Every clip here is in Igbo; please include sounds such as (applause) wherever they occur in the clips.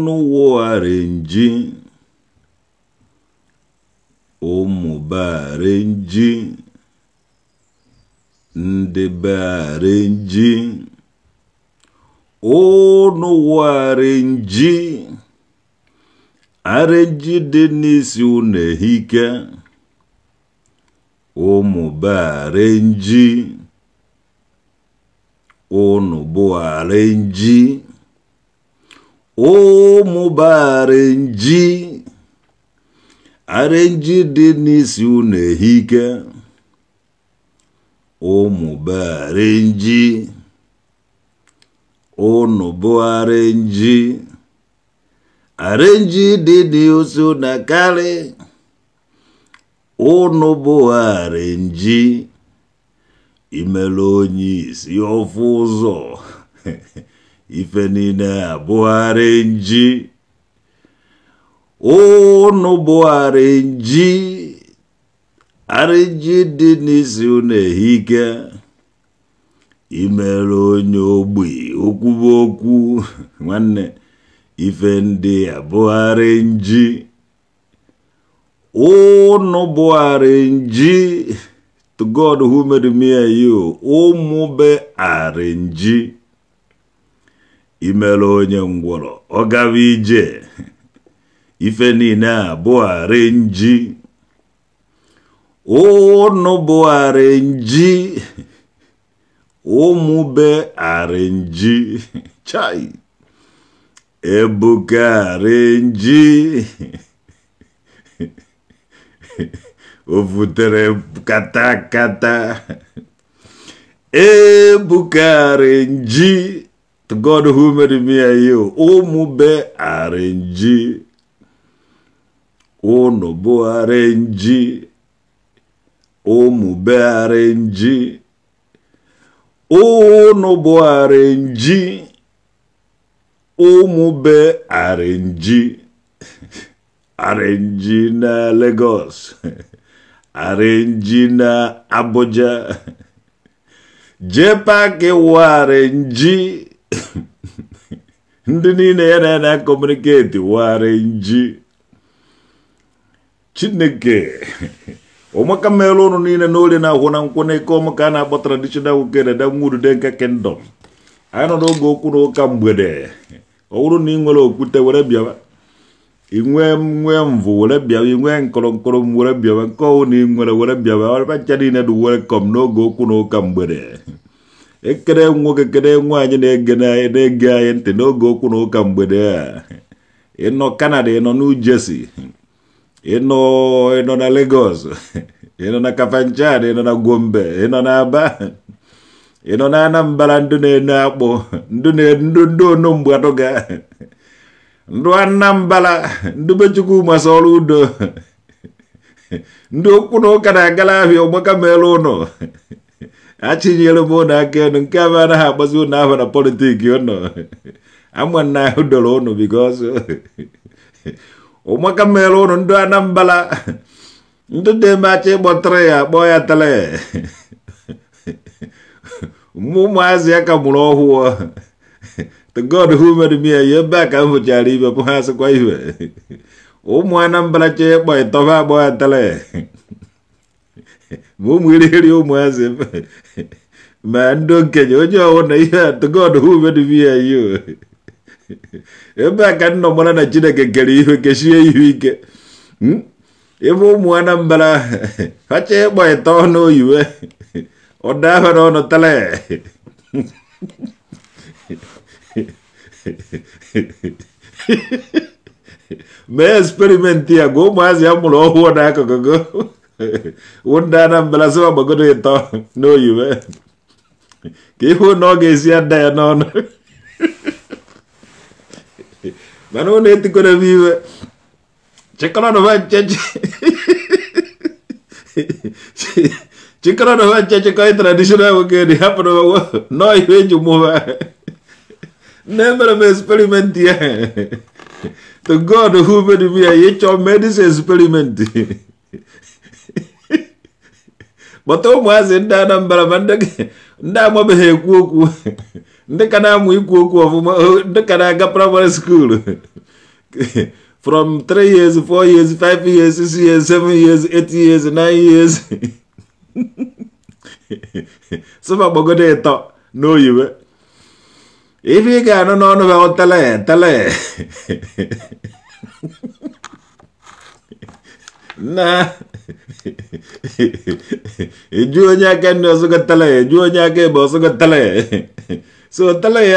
ọnụ wụgharịnji ụmụbarenji ndị barenji ụnụ wụgharịnji arenji dị n'isi ụnụ ehike ụmụbarenji ụnụ bụ arịnji arịnji dị n'isi unu ehike bụ arịnji ụnụ bụ arịnji arịnji dị n'isi unu akarị ụnụ bụ arịnji imelu onye isi ofu ụzọ (laughs) ife niile abụgharị nji ụnụ bụgharị nji arị nji dị n'isi ụnụ ehike imere onye ogbi okwubu okwu (laughs) nwanne ife ndị abụgharị nji ụnụ bụgharị nji to God who made me and you ụmụ be arị imela onye ngwọrọ ọ gawa ije (laughs) ife niile abụgharị nji ụnụ bụgharị nji (laughs) ụmụbe arị nji (laughs) chai ebuka arị nji o vutere katakata ebuka arị nji To God who made me and you, O mú bẹ́ O Nobo nù O arrange, ó O Nobo arrange, O nù bó arrange, na Lagos, (laughs) arrange na Abuja, (laughs) jẹ́ ke wà arrange. (coughs) ndị niile ya na na kọmuniketi wara nji chineke (laughs) ụmụaka mmerụ ụnụ niile n'orie na-ahụ na nkwụ n'ike ka a na-akpọ traditional uke na damwurude nke kingdom anyị nọ n'oge okwu na ụka mgbede ọ bụrụ na ị nwere okwute were bịaba inwe nwee mvụ were bịaba inwe nkọrọ were bịaba nke ọwụ na ị nwere were bịaba ọrịba ncha niile dị welkom n'oge okwu na ụka mgbede ekele nwoke kele nwaanyị na-ege na-ege anyị ntị n'oge okwu na ụka mgbede a ịnọ Canada ịnọ New ịnọ ịnọ na Lagos ịnọ na Kafanchan ịnọ na Gombe ịnọ na Aba ịnọ na Anambra ndị na-ene akpụ ndị na-endo ndị onumgbe atụga ndụ Anambra ndị mechukwu Chukwu ọrụ udo ndị okwu na ụka na-agala ahịa ọgbaka meelu ụnọ achinyere m ụnụ aka elu nke abụ anaghị agbazi ụnụ ahụ na politiki ụnụ ama na ahụ doro ụnụ bikos (laughs) ụmụaka mere ụnụ ndị anambala ndị demacha ịkpọtara ya akpọ ya tele mụ ụmụazị ya ka mụrụ ọhụụ (laughs) the god who made me ya ebe a ka m hụchara ibe pụ ha asịkwa ibe (laughs) ụmụ anambala chee ịkpọ ịtọba akpọ ya tele ma ụmụ ụmụazị ma ndị okenye onye ọwụna ihe atụgodhube dubiya ya ebe a ka nnọ mara na chineke kere ihe kechie ihu ike ebe ụmụ anambra ha ịkpọ ịta ọnụ oyiwe ọda ahụ na ọnụ tala mee eksperimenti ya gwa ụmụazị ya mụrụ ọhụụ n'akụkụ gị wụda na mbelazị ọgbagodo ịtọ n'oyiwe ka ihe ụnụ ọ ga-esi ada ya n'ọnụ mana ụnụ no m iwe chịkọrọnụba nche chịkọrọnụba nche chịkọ tradishonal nwoke ya dị hapụrụ n'ọhịa eji mụba nne mere me experimenti ya to god who made me ya ịchọ medis experimenti kpọta ụmụazị ndị Anambra ma ndị amabeghị ekwu okwu ndị ka na-amụ ikwu okwu ọfụma eh, ndị ka na-aga praịmarị skuulu from 3 years 4 years 5 years 6 years 7 years 8 years 9 years sọfa gbagodo ịtọ n'oyiwe ife ị ga-anụ n'ọnụ ha tele tele (laughs) na juwa ñakan ndo suka talaye nya ke bo suka ye. so tala ye,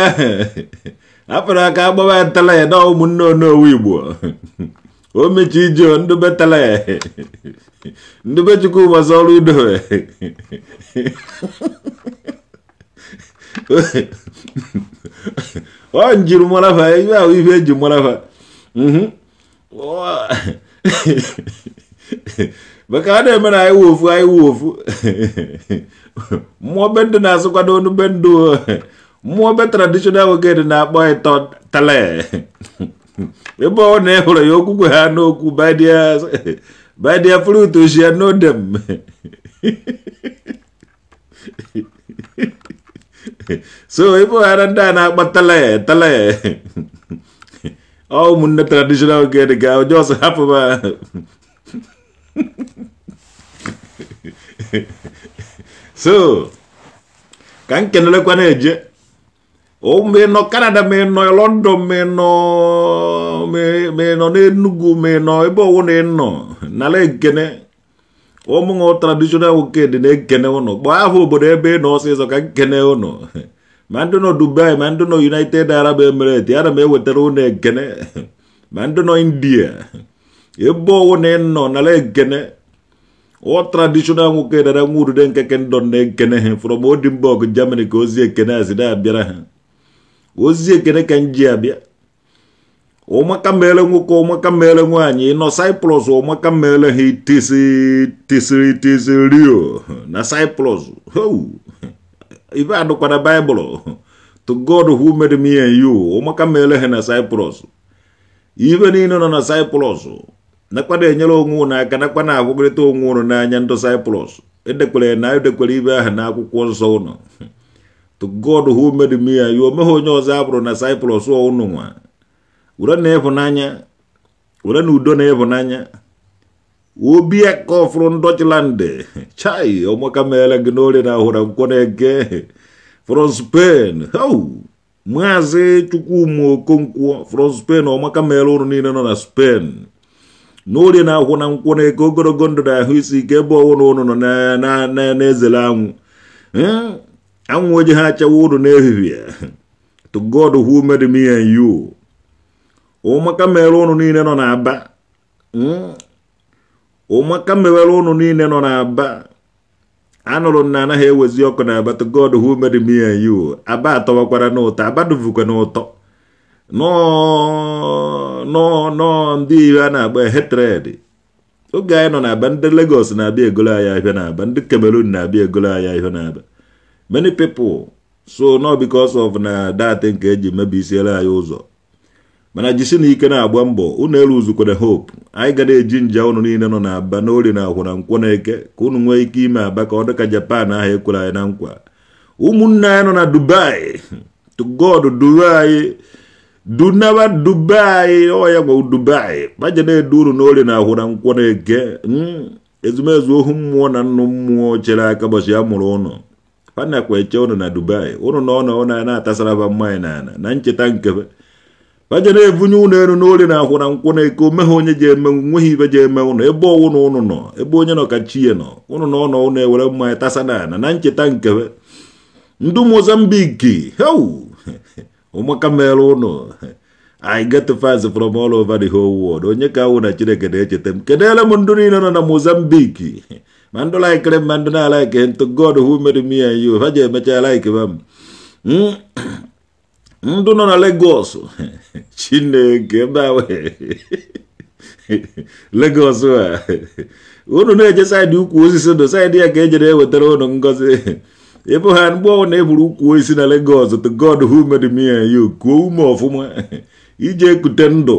apra ka bo ba ye, no mun no no wibo (laughs) o me ci jo ndu be ye, (laughs) ndu be ma so solu do (laughs) o njir mala fa ya e wi fe njir fa mhm maka a na-eme na anyị wụ ofu anyị wụ ofu mmụọ be ndị na-asụkwado onu be ndụ mmụọ be traditional woged na-akpọ ịtọ tale ebe ọ na hụrụ ya okwukwe ha n'okwu by their fruit you shall know them so ebe ọghara ndị a na-akpọ tale tale ọ ụmụnne traditional woged ga onye ọsọ hapụ ha so ka m kenelekwa na-eje ma ị nọ Canada ma ị nọ London ma ị nọ ma ị nọ n'Enugu ma ị nọ ebe ọwụ na ị nọ n'ala ekene ụmụnwụ traditional nwoke dị na-ekene ụnụ kpọọ aha obodo ebe ị nọ ọsịsọ ka nkene ụnụ ma ndị nọ Dubai ma ndị nọ United Arab Emirates ana m ewetara ụnụ ekene ma ndị nọ India ebe ọwụ na ị nọ nara ekene ọ traditional nwoke dara nwa urude nkeke ndọ na-ekene ha from Odinburg Germany ka ozi ekene azi na-abịara ha ozi ekene ka nji abịa ụmaka mere nwoke ụmaka mere nwaanyị nọ Cyprus ụmaka mere ha tisiri tisiri tisiri rio na Cyprus ibe na Cyprus nakwade nyelo nguna kana kwana bugre to ngunu na nyanto cyprus ede kule na ede kule ibe na akwụkwọ nsọ unu to god who made me yo meho nyo zabro na cyprus o unu nwa ura na efu nanya ura na udo na efu nanya obi a ka ofuru ndochland chai omaka mele gị n'ori na hụra nkwọ na-eke from spain hau maazị chukwumo okonkwo from spain omaka mele ụrụ niile nọ na spain na orie na-akwụ na nkwụ na eke ogologo ndụ na ahụ isi ike ebe ọwụna ụnụ nọ na-ezele anwụ anwụ oji ha achawa ụnụ n'ehihie to God who made me and you ụmụaka mere ụnụ niile nọ n'aba ụmụaka mewere ụnụ niile nọ n'aba anụrụ m na anaghị ewezi ọkụ na aba to God who made me and you aba atọwakwara n'ụtọ aba duvukwa n'ụtọ nọ ndị iwe a na-agba hetred oge anyị nọ na-aba ndị Lagos na-abịa egolo anyị ahịa na-aba ndị Cameroon na-abịa egolo anyị ahịa na-aba many people so no because of na dat nke eji mebisiere anyị ụzọ mana jisi na ike na-agba mbọ unu elu uzukwere hope anyị ga na-eji nja unu niile nọ na aba n'ori na akwụ na nkwọ na eke ka unu nwee ike ime aba ka ọ dịka Japan ahụ ekwere anyị na nkwa ụmụnne anyị nọ na Dubai (laughs) to God duwe anyị dunaba dubai oya gwa dubai baje ne duru n'ole na ahụra nkwọ na-eke ezumezu ohu mmụọ na nnu mmụọ chere aka ụbọchị a mụrụ ụnụ fana kwa eche ụnụ na dubai ụnụ na ọnọ ụnụ na-atasara ba mmanya n'ala e na ncheta nkebe baje na-ebunye ụnụ elu n'ole na ahụra nkwọ na-eke ome ha onye ji eme nweghị ibe ji eme ụnụ ebe ọwụ na ụnụ nọ ebe nọ ka chi ya nọ ụnụ na ọnọ ụnụ ewere mmanya na ncheta nkebe ndị mozambiki heu (laughs) ụmụ kamere ụnụ I get fans from all over the whole world onye ka awụ na chineke na-echeta m kedere m ndụ niile nọ na Mozambique ma ndụ laikere m ma ndụ na-alaike ntụ God who made me and you ha ji emecha ma m hmm? ndụ nọ na Lagos chineke Lagos a unu na-eje saịdị ukwu osisi ndụ saịdị ya ka ejere ewetara ụnụ ngozi ịbụ ha mgbe ọ na-eburu ukwu isi na Lagos to God who made me and you kuo ume ọfụma (laughs) ije ekute ndụ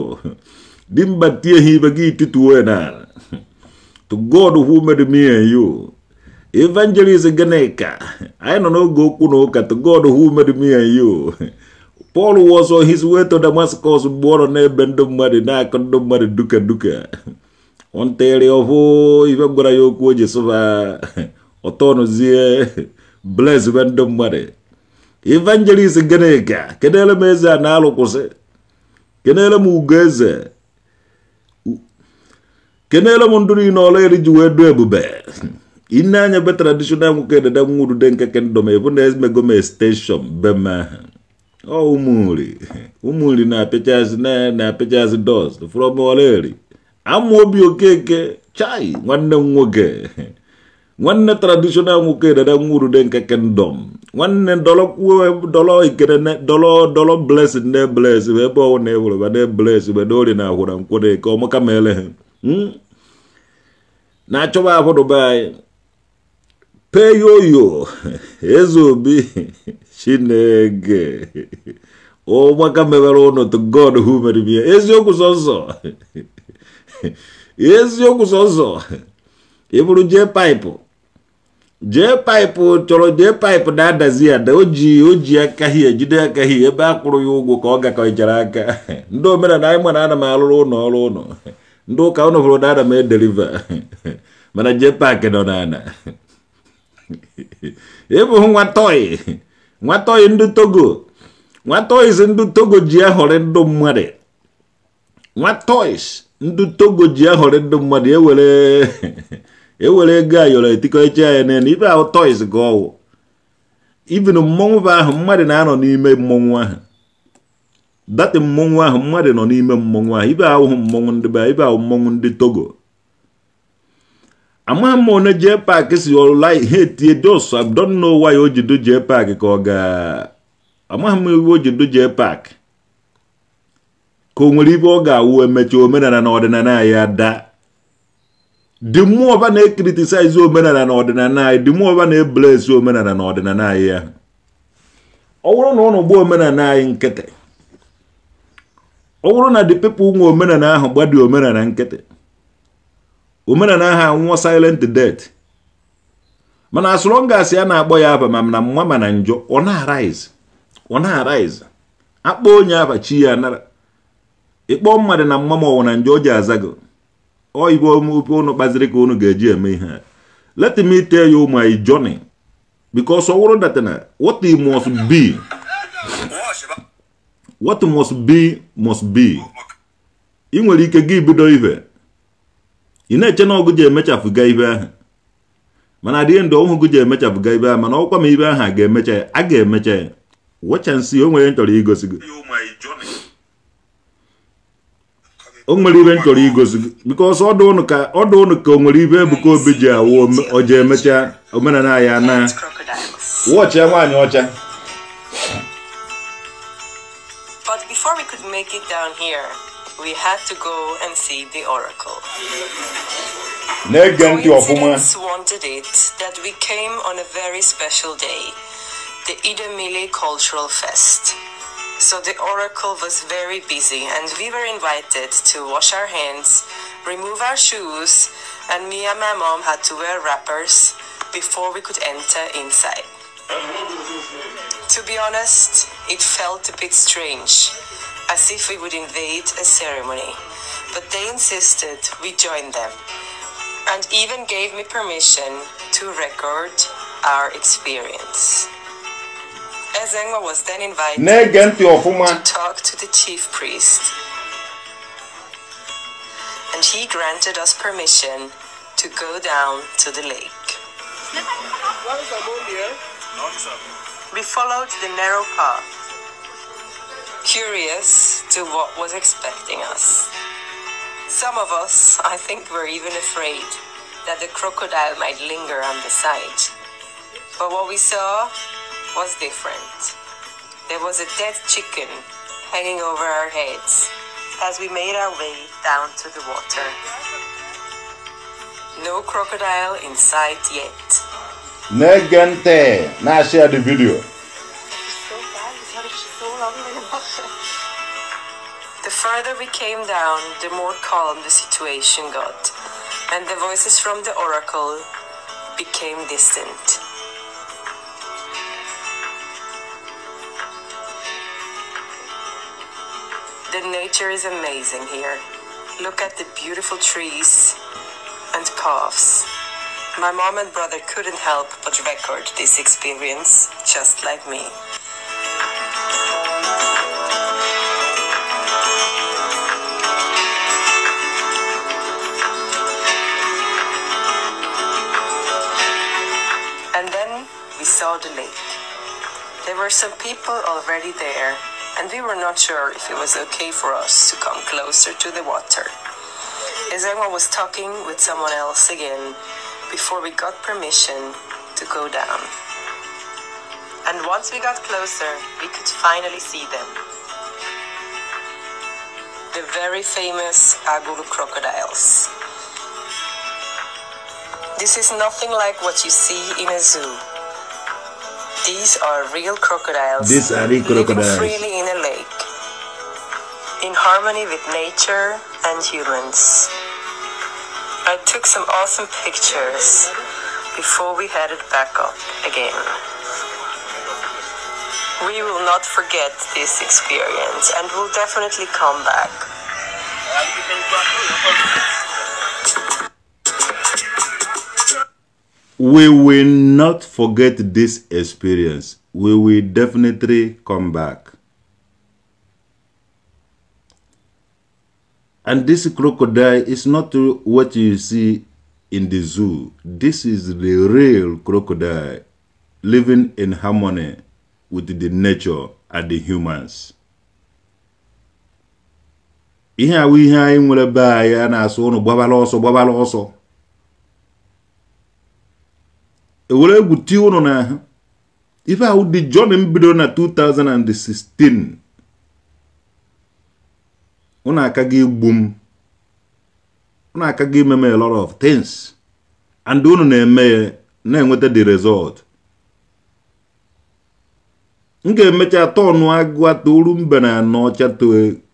dimba tie ha ibe gị tituo na to God who made me and you evangelist Ganneka anyị nọ n'oge okwu na ụka to God who made me and you Paul was on his way to Damascus mgbe ọ nọ n'ebe ndị mmadụ na-akọ ndị mmadụ duka duka ọ ntere ọhụ ibe gwara ya okwu o ji sụba (laughs) ọtọ nụzie blesbe ndị mmadụ evangelist gịnịka kedere m eze a na-alụkwụsị kenere m ugo eze kenere m ndụ niile ọla eri ji wee du ebube ine anya be traditional nwoke dede de nke kendọm ebu na emegom extension bem ahụ ọ ụmụnri ụmụnri na-apịchazị na-apịchazị dọst from ọla eri ama obi okeke chai nwanne m nwoke nwanne traditional nwoke edede nwurude nke kingdom nwanne dọlọ ikere dọlọ dọlọ blessing na bless ebe ọwụ na ewureba na bless gbede ori na ahụra nkwere ka ọmaka ma ele ha na-achọba ahụrụba anyị peyoyo (laughs) eze obi chineke (laughs) ụgbaka mewere ụnụ to god who mere m ya eziokwu sọsọ eziokwu sọsọ ịbụrụ jee paịpụ jee paịpụ chọrọ jee paịpụ na-adazi ada o ji o ji aka hie jide aka hie ebe a kwụrụ ya ụgwọ ka ọ gakọchara aka (laughs) ndị omenala anyị mana ana m alụrụ ụlọ ọrụ ụlọ (laughs) ndị ụka ụnụ hụrụ na ana m edeliva (laughs) mana jee paakị nọ n'ala ịbụghị nwa nwatọị ndị togo nwatọị ndị togo ji ahọrị ndụ mmadụ nwa nwatọị ndị togo ji ahọrị ndụ mmadụ ewere ewere ego ayọrọ etikọcha ya n'elu ibe ahụ toys gị ọwụ ibin mmọnwụ bụ ahụ mmadụ na-anọ n'ime mmọnwụ ahụ dati mmọnwụ ahụ mmadụ nọ n'ime mmọnwụ ahụ ibe ahụhụ mmọnwụ ndị be ibe ahụ mmọnwụ ndị togo amaghị m one jee paakị si ọlụla ihe etie dos abdonna ya o ji dojee ka ọ ga amaghị m iwe o paak ka o nwere ibe ọ ga-awụ emechi omenala na ọdịnala anyị ada di mmụọ ọba na-ekritisaizi omenala na ọdịnala anyị di mmụọ ọba na-ebelesi omenala na ọdịnala anyị ya ọ bụrụ na ụnụ gbuo omenala anyị nkịtị ọ bụrụ na di pepụl nwa omenala ahụ gbadi omenala nkịtị omenala ahụ anwụọ silent death mana asụrụ ngasị a na-akpọ ya aba ma na mma ma na njọ ọ na-arise ọ na-arise akpọ onye chi ya anara ịkpọ mmadụ na mma ma ọwụ na njọ ọ ji azago oyibo omume unu kpaziri ka unu ga-eji eme ihe let me tell you my journey because ọ wụrụ that na what must be what must be must be ị nwere ike gị bido ive ị na-eche na ọgụ ji emechafụga ibe ahụ mana dị ndụ ọhụgụ ji emechafụga ibe ahụ mana ọkwa ma ibe ahụ a ga-emecha a ga-emecha ya wecha o nwere m chọrọ igosi gị o nwere ọdụ ụnụ ka Obi ji awụ omenala ya na nwaanyị ọcha But before we could make it down here, we had to go and see the oracle. Coincidence wanted it that we came on a very special day, the Idemile Cultural Fest. So the oracle was very busy, and we were invited to wash our hands, remove our shoes, and me and my mom had to wear wrappers before we could enter inside. To be honest, it felt a bit strange, as if we would invade a ceremony. But they insisted we join them, and even gave me permission to record our experience. Ezengwa was then invited to talk to the chief priest. And he granted us permission to go down to the lake. We followed the narrow path, curious to what was expecting us. Some of us, I think, were even afraid that the crocodile might linger on the side. But what we saw was different. There was a dead chicken hanging over our heads as we made our way down to the water. No crocodile in sight yet. Negente! Now share the video. The further we came down, the more calm the situation got, and the voices from the oracle became distant. The nature is amazing here. Look at the beautiful trees and paths. My mom and brother couldn't help but record this experience, just like me. And then we saw the lake. There were some people already there and we were not sure if it was okay for us to come closer to the water. as Emma was talking with someone else again before we got permission to go down. And once we got closer, we could finally see them. The very famous Aguru crocodiles. This is nothing like what you see in a zoo. These are real crocodiles. These are real crocodiles. Living freely in a lake, in harmony with nature and humans. I took some awesome pictures before we headed back up again. We will not forget this experience and will definitely come back. We will not forget this experience. We will definitely come back. And this crocodile is not what you see in the zoo. This is the real crocodile living in harmony with the nature and the humans. Ihe a ihe anyị nwere be anyị na-asụ ụnụ gbabala ọsọ gbabala ọsọ ewere egwu tie ụnụ n'ahụ ife ahụ dị Johnny m na 2016 ụnụ akaga igbu m ụnụ akaga ime m a lot of things and ụnụ na-eme ya na-enweta the result m ga-emecha tọnụ agụa toru mbe na n'ọcha to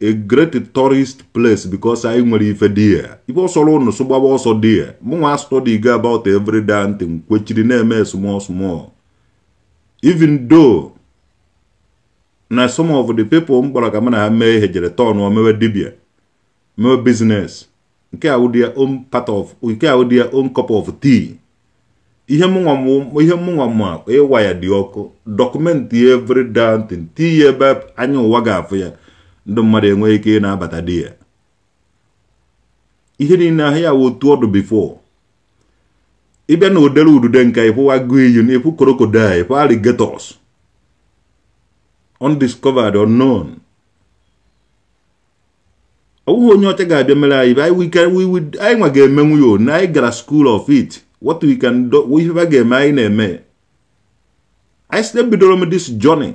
a great tourist place because anyị nwere ife dị ya ife ọsọrọ ụnụ so ọsọ dị ya mụnwa study go about every day ntị m kwechiri na-eme small small even though na some of the people m gbara ka m na ha mee ihe jere tọnụ mewe dibia mewe business nke a nke ya own cup of tea ihe ihe mụnwa ma ịwa e ya dị ọkụ dọkụmentị ya evri dantin ti ya ebe anya ụwa ga-afụ ya ndị mmadụ enweghị ike ị na-abata di ya ihe niile ahụ ya otu ọdụ bifo ịbịa na odere udude nka ịfụwa guiyin ịfụ korokoda ịfụ alligators undiscovered unknown ọ bụghị onye ọcha ga-abịa mere anyị anyị nwa ga-emenwu ya anyị gara school of it what we can do ifefe ga-eme anyị na-eme anyị site bidoro m dis journey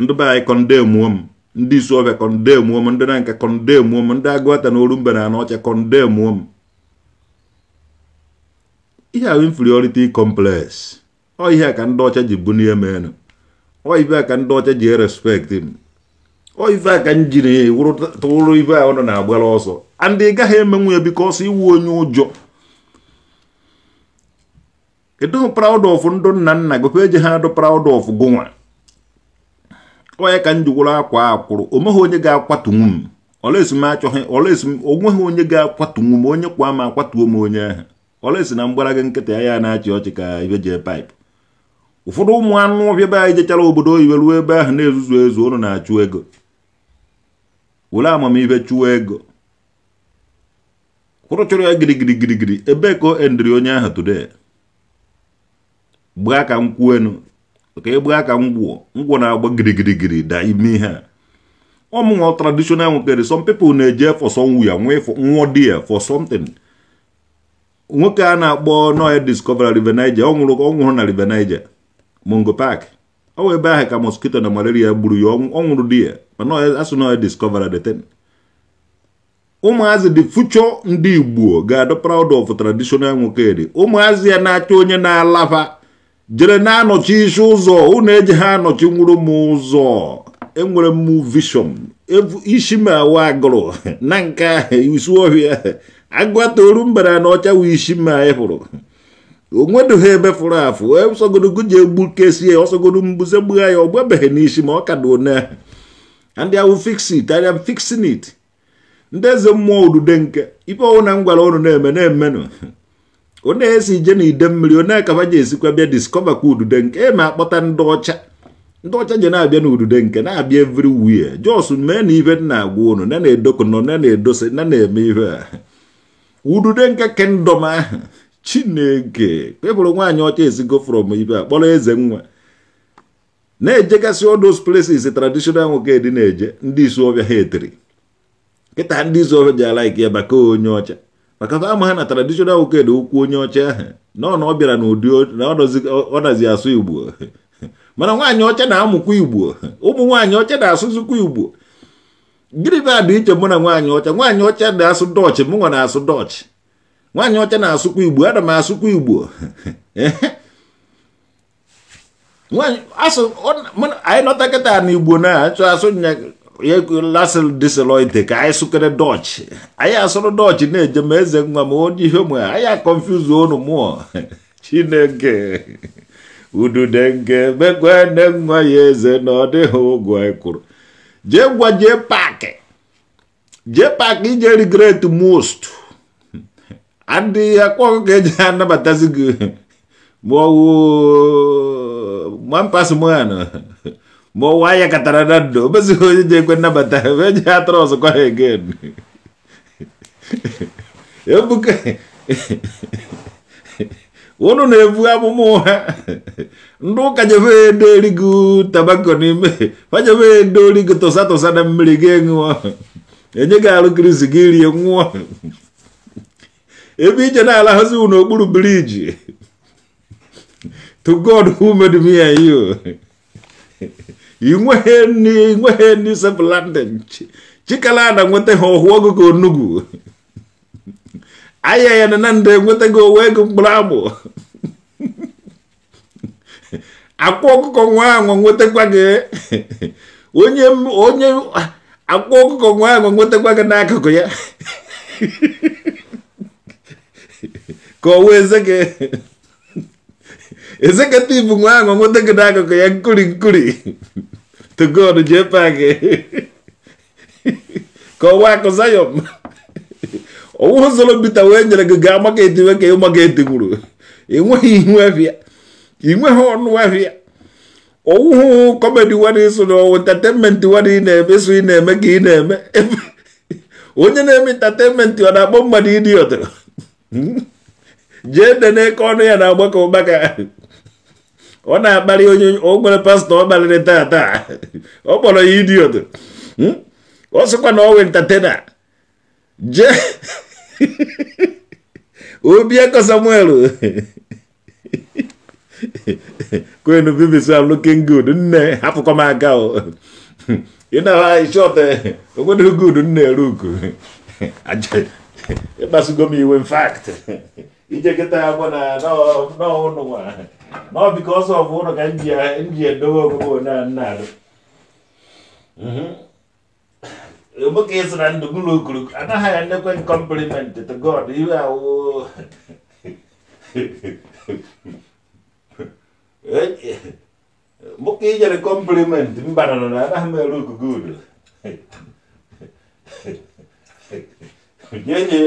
ndị be anyị kondemuo m ndị isuobia kondemuo m ndị na nke kondemuo m ndị agụata na mbe na anọcha kondemuo m ihe ahụ inferiority complex ọ ihe a ka ndị ọcha ji bunie m enu ọ ife a ka ndị ọcha ji erespekt m ọ ife a ka m jiri tụrụ ife ahụ nọ na-agbara ọsọ and ị gaghị emenwu ya bikọ ọsọ iwu onye ụjọ edo proud of ndụ nna nna gị eji ha adụ proud of gụnwa onye ka m jiwuru akwa o omeghị onye ga-akwatunwu m olesi m o olesi m onweghị onye ga-akwatunwu m onye kwa m akwatuo m onye ahụ olesi na mgbara ga nkịta ya na-achị ọchị ka ibe jee paịpụ ụfọdụ ụmụ anụ ọbịa be jechara obodo oyibo ruo ebe ahụ na-ezuzu ezu ụnụ na-achụ ego were amamihe chụọ ego kwụrụ chọrọ ya gịrịgịrịgịrịgịrị ebe ka o onye ahụ today gbaa ka m kwuo enu ka ị gbaa ka m gwụọ na-agba girigirigiri da ime ihe a ọmụnwa traditional nwokere some people na-eje for somewhere nwụọ di ya for something nwoke a na-akpọ noya discover River Niger ọ nwụrụ ọ na River Niger Mungo pak ọ wụ ebe ahụ ka moskito na malaria gburu ya ọ nwụrụ di ya mana asụ noya discover the thing ụmụazị dị future ndị Igbo ga-adọ proud of traditional nwokere ụmụazị ya na-achọ onye na alafa jere na-anọchi isi ụzọ unu eji ha anọchi nwụrụ m ụzọ enwere m vishọn isi m awa agụrụ (laughs) na nke isi ọhịa agụatoru mbara na ọcha wụ isi m ịfụrụ onwedoghị ebe fụrụ afụ ọsọgorogoji e egbukesi ya ọsọgoro mbuze gbugha ya ọ gbabeghị n'isi ma ọ ka dị one ndị ahụ fix it arịa ndị eze mmụọ odude nke ife ọwụ na m gwara ụnụ na-eme na-emenụ onye esi ije na mmiri onye akaba ji esikwa bịa diskọva kwa udude nke eme akpọta ndị ọcha ndị ọcha ji na-abịa na udude nke na-abịa evri wia jos mee na ibe na-agwa unu na na-edokụ nọ na na-edose na edosi na na eme ihe a udude nke kendọm ahụ eh, chineke kpebụrụ nwaanyị ọcha esigo frọm ibe a kpọrọ eze nwa na-ejegasị all those places traditional nwoke dị na-eje ndị isi ọbịa ha etiri nkịta ndị isi ọbịa ji ala ike ya maka onye ọcha maka ama na natara dishonal woked okwu onye ọcha ahụ nọ na ọ bịara n'ụdị na ọ asụ igbo (laughs) mana nwaanyị ọcha na-amụkwa igbo ụmụ nwaanyị ọcha na-asụzikwa igbo gịnị bụ adị iche mụ na nwaanyị ọcha nwaanyị ọcha na-asụ dọchị mụ nwa na-asụ dọchị. nwaanyị ọcha na-asụkwa igbo ana m asụkwa igbo (laughs) anyị nọta kịta na igbo na-achọ asụ laasị dịsịrị ite ka anyị sụkere dọchị anyị asụrụ dọchị na-eje ma eze nwa ma onye ihe mụ anyị akọnfuz unu mụọ chineke udude nke megwe nne nwa ya eze na ọ dịghị ụgwọ anyị kwuru jee gwa jee paakị jee paakị ije regret most adịghị akpọghị ka eji anabatazi gị ma ọwụ mampas mụanụ ma ụwa (laughs) ya katara na ndo o mezighị onye na-ekwe nnabata onye ya atọrọ ọzọkwa ha egen ebuka ụnụ na-ebu amụma ụgha ndị ụka jebe edo erigo tabako n'ime ha jebe edo origo tụsa tụsa na mmiri gị ṅụọ enye gị arụ krizi gị rie nwụọ ebe ije na-alaghazi n'okpuru biriji to god who made me and inweghị inweghị nri sef landing chikala ada nwetaghị ọhụ ọgụgụ onugwu (laughs) aya ya na na ndị enwetaghị owe ego mkpụrụ agbụ (laughs) akwa ọkụkọ nwa anwa nwetakwa gị (laughs) onye onye akwa ọkụkọ nwa anwa nwetakwa gị n'akụkụ ya ka ọ wee ze ezekatibu nwangu nwụdegide akụkụ ya nkuri nkuri togod jee pak ka ọwa akụ zayọm ọwụ zoro bita wee nyere gị gaa maket we ka ịmaket gwuru ịnweghị ihu afịa ịnweghị ọnụ afịa owuhụ kọmedi wadị so na ọwụ entateinmenti wadị na-eme so ị na-eme ka ị na-eme onye na-eme entateinmenti ọ na-akpọ mmadụ idiọt hmm? jee dene ka ọnụ ya na-agbakọ ụgbaka ọ na-akparị onye ogbere nwere pastọ ọ kparịrị tata ọ kpọrọ ya idiot hmm? ọ sịkwa na ọwe ntatena jee (laughs) Obieko Samuel (laughs) kwenu BBC am looking good nne hapụkwa m aka o ị na-ahụ shọt good nne ruku (laughs) ịkpasugo m iwe in fact ije kịta ya bụ na nọ biko ọsọ bụ ụlọ ka nji edobe ogogo na-arụ ka ị sị na ndụ m okuru anaghị ya nnekwe kọmplimentị to God iwe awụ ka ijere kọmplimentị mba nọ na anaghị m ere okugo udo nye nye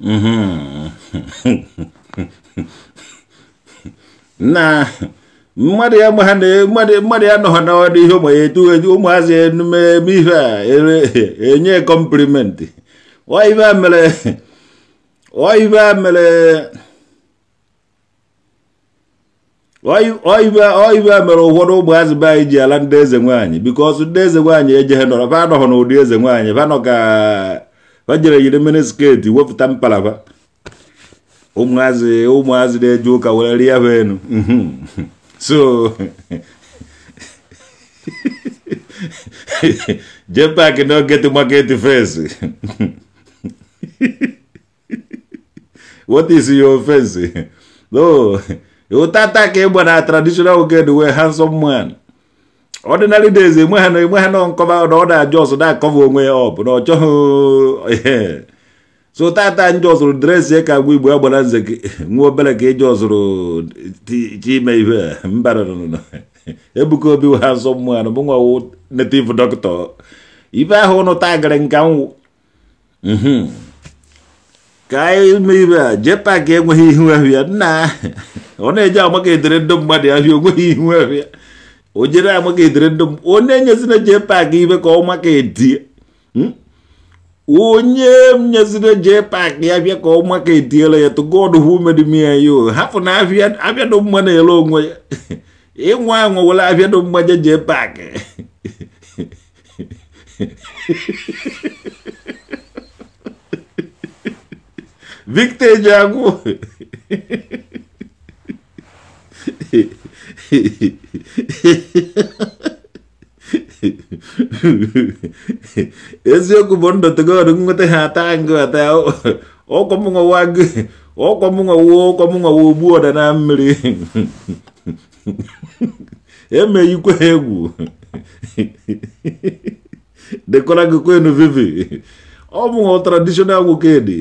(laughs) na mmadụ ya ma ha mmadụ ya nọ n'ọdụ ihe ụmụ ya etu etu ụmụazị eme e, ihe a e, e, enye ọ ọive a mere ọ ọive a mere ọ ọ ọive a mere ụfọdụ ụmụazị be anyị ji ala ndị eze nwaanyị bikọs ndị eze nwaanyị ejeghị nọrọ fa anọghọ n'ụdị eze nwaanyị fa nọ ka ha jere yiri mmiri sketi wepụta mpalaba ụmụazị ụmụazị na-eje ụka were rie ha enu mhm. so jee paakị na ogeti maketi face what is your face no ụta taa ka ịgba na traditional ogede wee handsome man ordinary days enwe ha enwe ha nọ nkọva na ọ na-ajụ ọsọ na-akọva onwe ya ọ bụ na ọchọghị so tata njọ zụrụ dresị ka agwa igbo agbara nze (laughs) nwa (laughs) (laughs) obere mhm. ka ịjọ e zụrụ chime ihe mbara ebuka obi ha nsọ mmụọ anụ bụ nwa native dọkịta ibe ahụ ụnụ taa gara nka nwụ ka ime ibe a jee paakị enweghị ihu ahụ ya nna ọ na-eji amaka edere ndị mmadụ ahịa onweghị ihu ahụ ya ojere amakethire ndum onenye hmm? sinachepakiive koomwakeetie unyemnya sinachepakia vya koomwakeetie la yetu god humedimia yo hafuna avya avya dommwana elongwa ing'wang'wa (laughs) e wala avya dommwa jechepake (laughs) victe jangu (laughs) eziokwu bụ ndotegoro nweta ha ata ngụ ata ụkọmụnwa gị ụkọmụnwawo ụkọmụnwawo ogbu ọda na mmiri emeghikwa egwu dekọra gị kwenu vivi ọ bụ tradishonal wokedi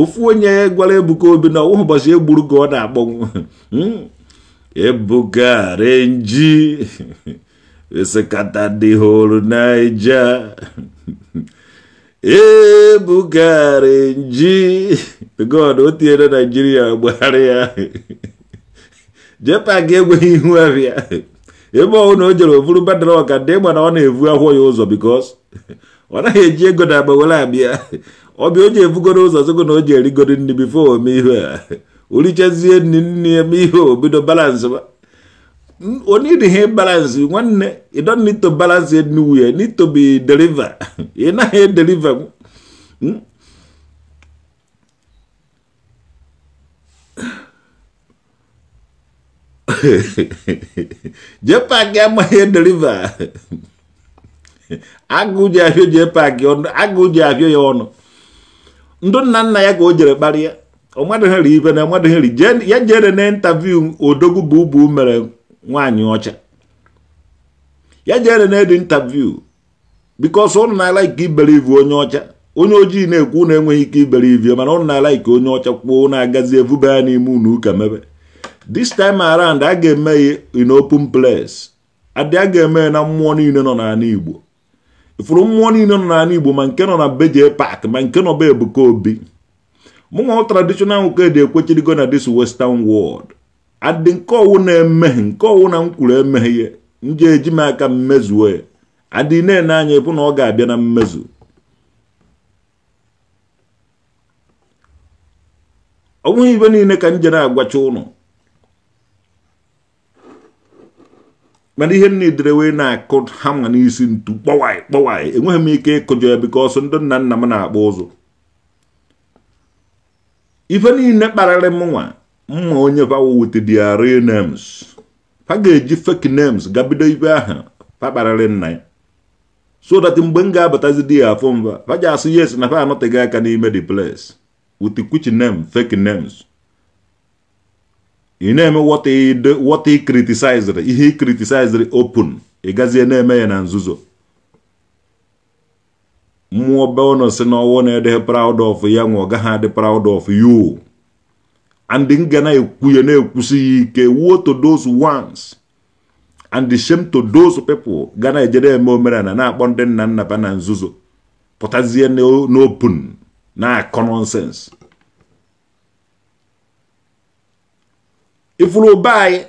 ofu onye gwara ebuka obi na ụbọchị egburu ka ọ na-akpọnwụ Ebuka Renji (laughs) esekata dị hụrụ Naija (laughs) Ebuka Renji (laughs) God o tinyere Naijiria gbagharị ya jepak enweghị ihu abịa ebe ọhụụ na o jere ofuru badara ọka ndị ịgba na ọ na-evu akwụọ ya ụzọ bikos ọ naghị eji ego na agba were abịa ọbịa o ji evugoro ụzọ zogo na o ji erigoro nri bifo ome ihu a olichezie nne eme ihe obido balance onye dị ihe balance nwanne you don't need to balance it nowhere need to be deliver (laughs) ị naghị edeliver hmm? (laughs) jepak amaghị deliver (laughs) agụ ji abịa jepak agụ ji abịa ya ọnụ ndụ nna nna ya ka o jere kparịa ọmadụgheri ibe na ọmadụgheri ya jere na intaviu odogwu bụ ubu mere nwaanyị ọcha ya jere na edi intaviu bikos ụnụ na-ala ike iberivu onye ọcha onye ojii na-ekwu na enweghị ike iberivu mana ụnụ na-ala ike onye ọcha kwuo na-agazi evube ya n'ime unu ụka mebe this time around a ga-eme in open place adị a ga-eme na mmụọ niile nọ n'ala igbo ifuru mmụọ niile nọ n'ala igbo ma nke nọ na beje pak ma nke nọ be ebuka obi mụnwa traditional nwoke dị ekwechirigo na this western world adị nke ọwụ na-emeghe nke ọwụ na mkwuru emeghe ya nje eji m aka mmezuo ya adị na-ene anya ịbụ na ọ ga-abịa na mmezu ọ bụghị ibe niile ka m jere agwacha ụnụ mana ihe nidere wee na-akụ hama n'isi ntu kpọwaị kpọwaị enweghị m ike ịkụjọ ya bikọ ọsọ ndị nna nna m na-akpọ ụzụ ife niile kparịrị mụnwa mma onye pawa with their real names ga-eji fake names gabido ibe ahụ pakparịrị nna ya so that mgbe m ga-abatazi di ya afọ mba pa yes na pa anọteghị aka n'ime the place with which name fake names ị na-eme what he ihe he open ị gazie na-eme ya na nzuzo mmụọ belno si na ọwụ na-ede proud of ya nwa ọ gaghị adị proud of you and ngana na na-ekwusi ya ike wuo to those ones and shame to those people ga na-ejere eme omenala na-akpọ ndị nna nna ba na nzuzo pụtazie n'open na nonsense ifuru ụba anyị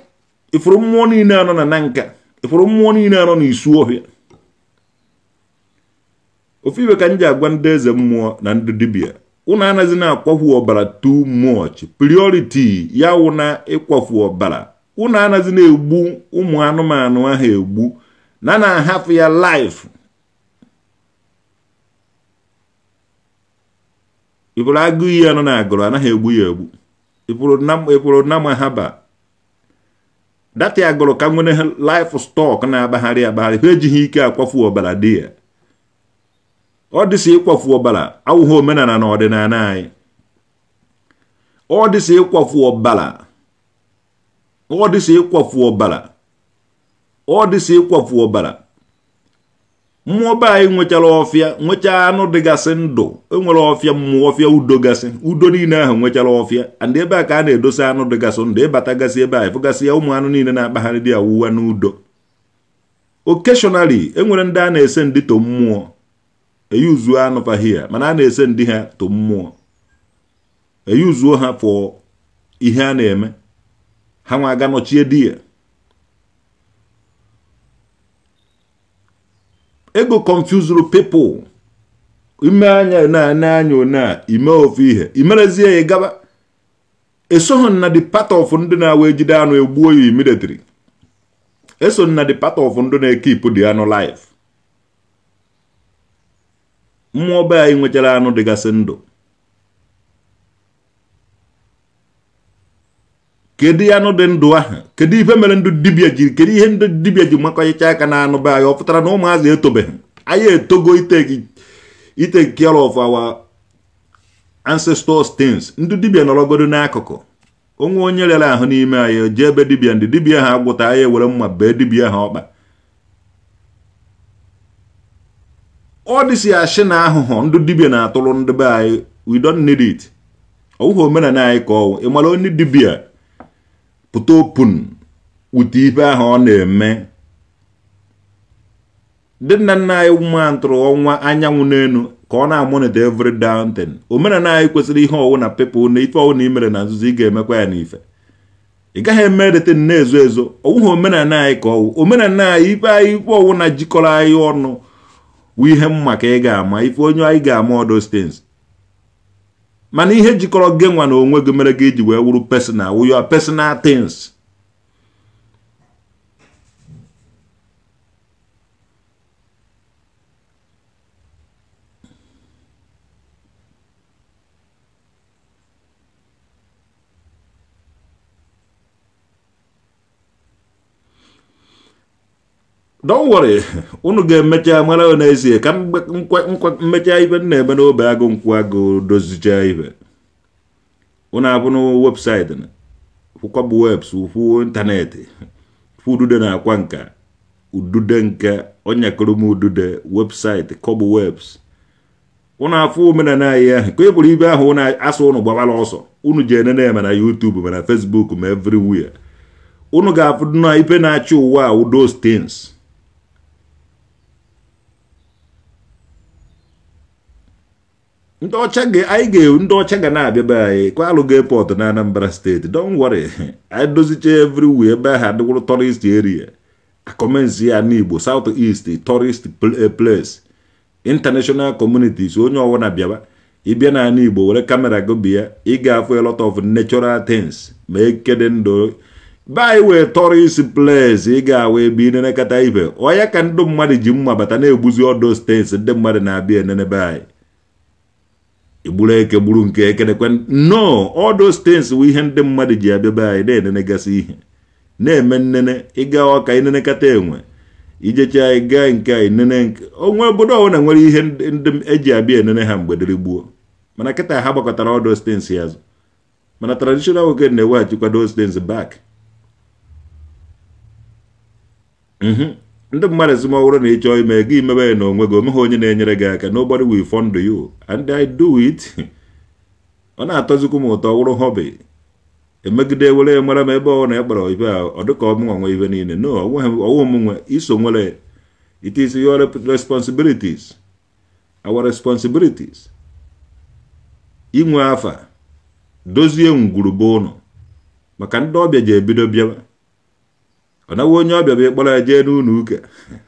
ifuru mmụọ niile anọ na nanka nka ifuru mmụọ niile anọ na isu ọhịa ofu iwe ka m agwa ndị eze mmụọ na ndị dibia ụnụ anaghịzi na-akwafu ọbara too much priority ya wụ ịkwafu ọbara ụnụ anaghịzi na-egbu ụmụ anụmanụ ahụ egbu na na-ahafụ ya life ịpụrụ agụ iyi anọ na agụrụ anaghị egbu ya egbu ịpụrụ nama ha ba data agụrụ ka nwere life stock na-agbagharị agbagharị ha ejighị ike akwafu ọbara dị ya ọ dịsị ịkwafu ọbara awụghị omenala na ọdịnala anyị ọ dịsị ịkwafu ọ dịsị ịkwafu ọbala ọ dịsị ịkwafu mmụọ be anyị nwechara ọfịa nwechaa anụ dịgasị ndụ enwere ọfịa mmụọ ọfịa udo gasị udo niile ahụ nwechara ọfịa and ebe a ka a na-edosa anụ dịgasị ndụ ịbatagasị e ebe anyị fụgasị ya ụmụ anụ niile na-akpagharị dị awụwa n'udo okeshọnali enwere ndị a na-ese ndịto mmụọ eyuzuo anụfa hia mana a na-ese ndị ha to mmụọ e uzuo ha for ihe a na-eme ha nwa aga nọchie di ya ego confusuru people ime anya na-anya anya one ime ofu ihe imerezie ya gaba esoghị na the part of ndị na-awa ejide anụ egbuo ya military eso na the part of ndị na-ekipụ di anụ life mmụọ be anyị nwechara anụ dịgasị ndụ kedu anụ dị ndụ ahụ kedu ife mere ndụ dibịa ji kedu ihe ndị dibịa ji makọchicha aka na anụ be anyị ọ pụtara na ụmụazị etobeghị anyị etogo ite care of our ancestors things ndị dibịa nọrọgodo n'akụkụ onwe onye rere ahụ n'ime anyị jee ebe dibịa ndị dibịa ha agwụta anyị ewere mma bee dibịa ha ọkpa ọ dịsị ashị na ahụhụ ndị dibia na-atụrụ ndị be anyị we don't need it ọwụghị omenala anyị ka ọwụ onye dibia pụta opun wute ife ahụ ọ na-eme dị nna nna anyị ma ntụrụ ọnwa anyanwụ n'elu ka ọ na-amonite every downton omenala anyị kwesịrị ihe ọwụ na pepụ na ife ọwụ na imere na nzuzo ị ga-emekwa ya n'ife ị gaghị eme edete na-ezo ezo ọwụghị omenala anyị ka ọwụ omenala anyị ife anyị ife ọwụ na jikọrọ anyị ọnụ wụ ihe mma ka ị ga-ama ife onye anyị ga-ama odos stins mana ihe jikọrọ gị nwa na onwe gị mere gị iji wee wuru personal wụ your personal things don't worry unu ga-emecha mara n'ezie ka mmecha ibe m na-eme n'obe agụ nkwa agụ dozicha ibe unu abụ na webụsaịtị kwụkwabụ webs ụfụ ịntanetị udude na-akwa nka udude nke onyakọrọm udude webụsaịtị kọbụ webs ụnụ afụ omenala anyị ahụ ka e ibe ahụ asụ ụnụ gbabara ọsọ unu ji enene eme na YouTube ma na Facebook ma everywhere unu ga-afụdụ na ibe na-achị ụwa a those things ndị ọcha anyị ga ndị ọcha ga na-abịa be anyị kwalụ ga na Anambra steeti don't worry anyị (laughs) dozicha everywhere ebe ahụ adịwụrụ tourist area akọmensi ya n'Igbo South East tourist eh, place international communities onye ọwụna bịaba ịbịa na ala Igbo were kamera go ị ga-afụ a lot of natural things ma ekede ndụ be anyị wee tourist place ị ga-awụ ebe inenekata ibe ọya ka ndị mmadụ ji mma bata na-egbuzi ọdọ steeti ndị mmadụ na-abịa enenebe anyị igburu eke gburu nke ekenekwe no all those things bụ ihe ndị mmadụ ji abịa anyị na-enenegasị ihe na-eme nnene ịga ọka inenekata enwe ijecha ịga nke anyị nene onwe obodo na nwere ihe ndị eji abịa enene ha mgbe dịrị gbuo mana kịta ha gbakọtara all those things ya azụ mana traditional nwoke na-eweghachikwa those things back mm-hmm. ndị mmadụ ezumọhụrụ na ịchọọ ime gị imebe ya n'onwe gị omeghị onye na-enyere gị aka nobody will fund you and I do it (laughs) ọ na-atọzikwu m ụtọ wụrụ hobby emegide were mara m ebe ọ na ekpara ibe a ọ dịka ọmụnwa nwe ibe niile no ọwụ m nwe iso nwere it is your responsibilities our responsibilities inwe afa dozie ngwurube ụnụ maka ndị ọbịa ji ebido bịaba ọ naghị onye ọbịa bụ ịkpọrọ ya jee n'ụlọ uke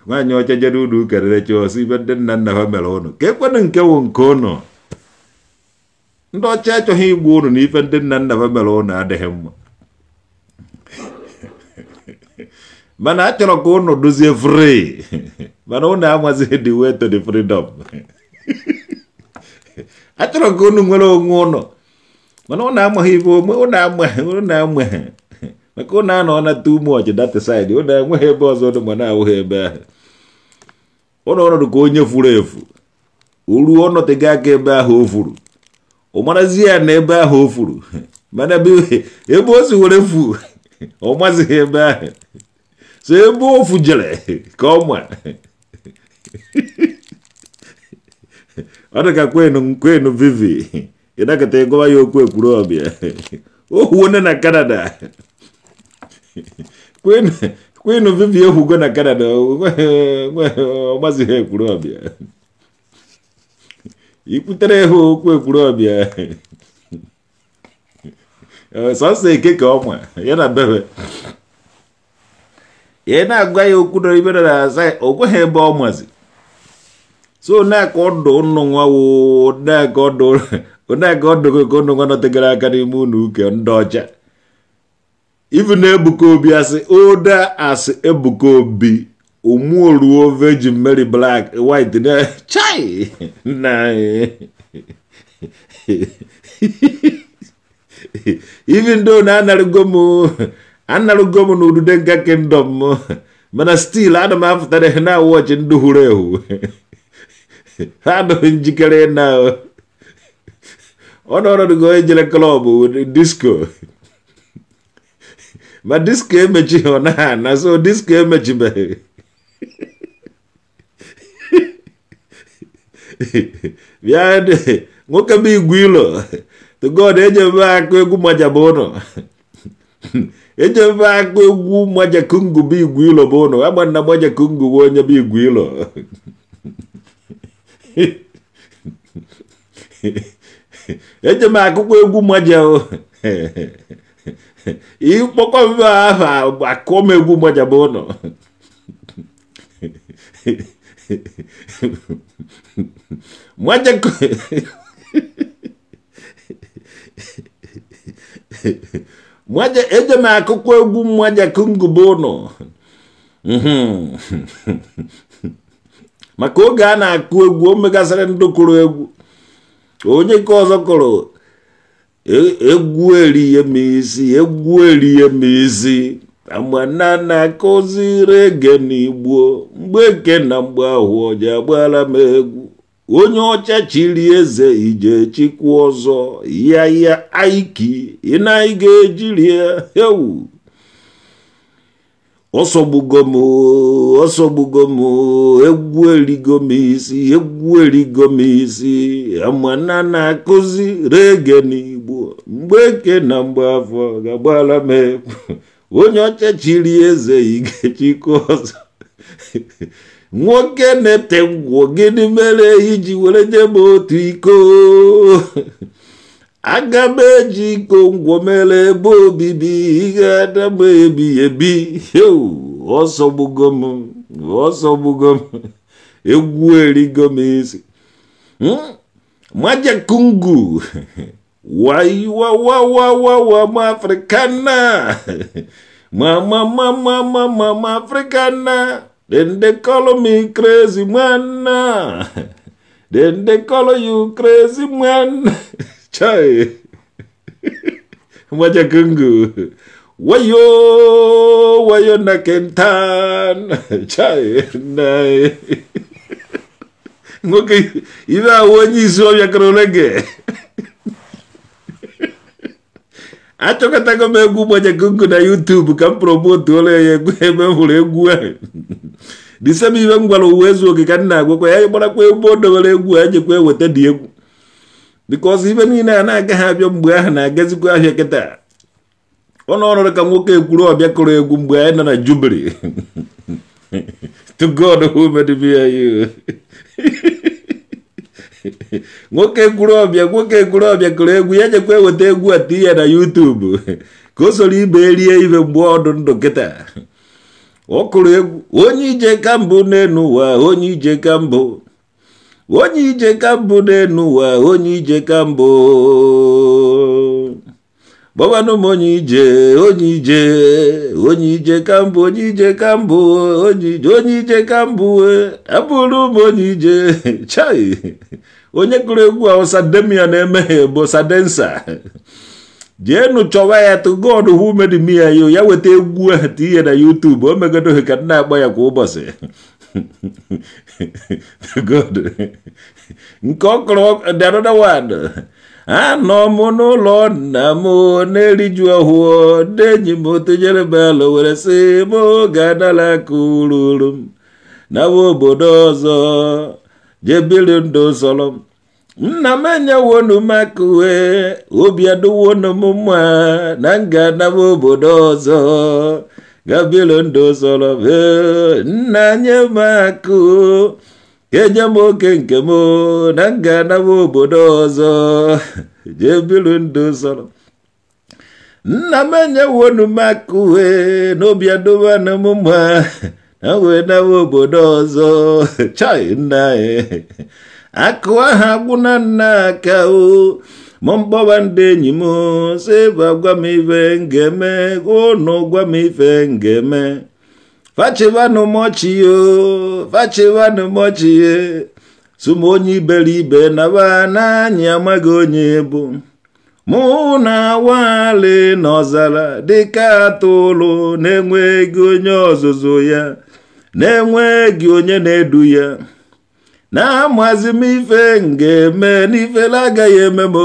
nwaanyị ọcha jere ụlọ uke rerecha ọsọ ibe ndị nna nna ha mere ụnụ ka ekwenụ nke wụ nke ụnụ ndị ọcha achọghị igbu ụnụ na ife ndị nna nna ha mere ụnụ adịghị mma mana a chọrọ ka ụnụ dozie fri mana ụnụ amazighị the way to the freedom a chọrọ ka ụnụ nwere onwe ụnụ mana ụnụ amaghị ibe ụnụ amaghị ụnụ amaghị maka ụnụ na nata ume ọchị data saịdị ụnụ enweghị ebe ọzọ ụnụ ma na-awụghị ebe ahụ ụnụ ọnọdụ ka onye furu efu oruo ọnọtega aka ebe ahụ o furu ụmarazi ya na ebe ahụ o furu (laughs) mana ebe o si were fu (laughs) ọ mazighị ebe ahụ so ebe o fujere (laughs) ka ọ ma ọ dị ka kwenu kwenu vivi ịnakọta ịgụwa ya okwu ekwuru ọbịa o huone na Canada kwene kwene viviye hugo na canada omazihe kulobya ikutereho kwe kulobya eh, sọsọ ekeke ọnwa ya na bebe ya na-agwa ya okwu dọrọ ibe dọrọ asa o kweghị ebe ọ mazi so na-aka ọdụ ụnụ nwa wo na-aka ọdụ ụnụ nwa nọtegara aka n'ime ụlọ uke ndị ọcha even na Ebuka Obi asị as asị Ebuka Obi omuoruo Virgin Mary Black White na (laughs) chai na (laughs) even though na anarụgo m anarụgo m na udude kingdom m mana still ana m afụtara na wọchị ndị hụrụ ehu (laughs) ha adịghị njikere na ọ nọrọgo ejere klọb disko ma diski emechi ọ na na so diski emechibeghị bịa nwoke bụ igwe ilo to god ejebe akụ egwu maja bụ ụnọ ejebe akụ egwu maja kungu bụ igwe ilo bụ ụnọ agba nna maja kungu bụ onye bụ igwe ilo eje m akụkọ egwu maja (laughs) ịkpọkọba ahụ akụmegbu gbajaba ụlọ eje m akụkọ egwu mmajakungube ụlọ (laughs) maka oge a na-akụ egwu o megasịrị ndị kụrụ egwu onye ka ọzọ kụrụ E, egwu erihe m isi egwu erihe m isi amana na-akụziri ege n'igbo mgbe eke na mgbe ahụ ọja agbara m egwu onye ọcha chiri eze ije chikwu ọzọ ya ya aiki ị na-aga ejiri ewu ọsọgbugo m ọsọgbugo m egwu erigo m isi egwu erigo m isi amana na-akụzi rege n'igbo mgbe eke na mgbe afọ ga-agbara m ekwu onye ọcha eze igechiko ọzọ nwoke na-ete ngwụ gịnị mere iji were nye otu iko aga m eji iko ngwomere ebe obibi ihe adam ebi ebi ọsọgbugo m ọsọgbugo m egwu erigo m isi hmm? majakungu waiwawawawawa mafrikana mamamamamamafrikana then they call me crazy man then they call you crazy man (laughs) chai (laughs) mwajakungu wayo wayo na kentan (laughs) chai nae (laughs) ngoke suwa ya vyakarolenge acho katako mwaja mwajakungu na youtube kampromoti ole emevula egua disemi vengwala uwezo okikanagwo kweyayomona kwe mondo vale egua anje kwewete diegu because even in a na-agaghị abịa mgbe na-agazikwa ahịa kịta ọ nọrọ ka nwoke ekwuru ọbịa kụrụ egwu mgbe anyị nọ na jubili to god who made me you nwoke kwuru ọbịa nwoke kwuru ọbịa kụrụ ya a tinye ya na yutubu ka o soro ibe rie ibe mgbe ọdụ ndụ kịta ọ kụrụ egwu onye ije ka mbụ n'elu onye ije ka mbụ n'elu ụwa onye ije ka mbụ gbawanụ m onye ije onye ije onye ije ka mbụ onye ije ka mbụ onye ije onye ije ka mbụ abụrụ m onye ije (laughs) chai onye kụrụ egwu awụsa demia na-emeghe bụ sadensa jeenu chọwa ya tụ god hu medimia yo ya weta egwu ahụ tinye na YouTube o megodoghị ka na agba ya kwa ụbọchị (laughs) Good. nke ọkọrọ da wad. one anọ mono lo nna m na-eriju ahụ denyi m tụnyere belo were sị belo wera se mo ururu m nawa obodo ọzọ jebiri ndụ sọrọ m nna m enyewonu m aka uwe obi adụwonu na m ga gabilo ndụ soro nna nye m kenye m oke nke m na m ga obodo ọzọ (laughs) jee biri nna m enyewonu m m mma na wee nawe obodo ọzọ (laughs) chai nna anyị akụ aha na nna mọmkpọba ndị enyi m sịba gwa m ife ngeme ụnụ gwa m ife ngeme fachivanụ mọchi yo fachivanụ mọchi ye sum onye amaghị onye bụ mụ na wali ọzara dịka atụrụ na-enweghị onye ọzụzụ ya na-enweghị onye na-edu ya na-amazi m ife nga-eme na agaghị eme m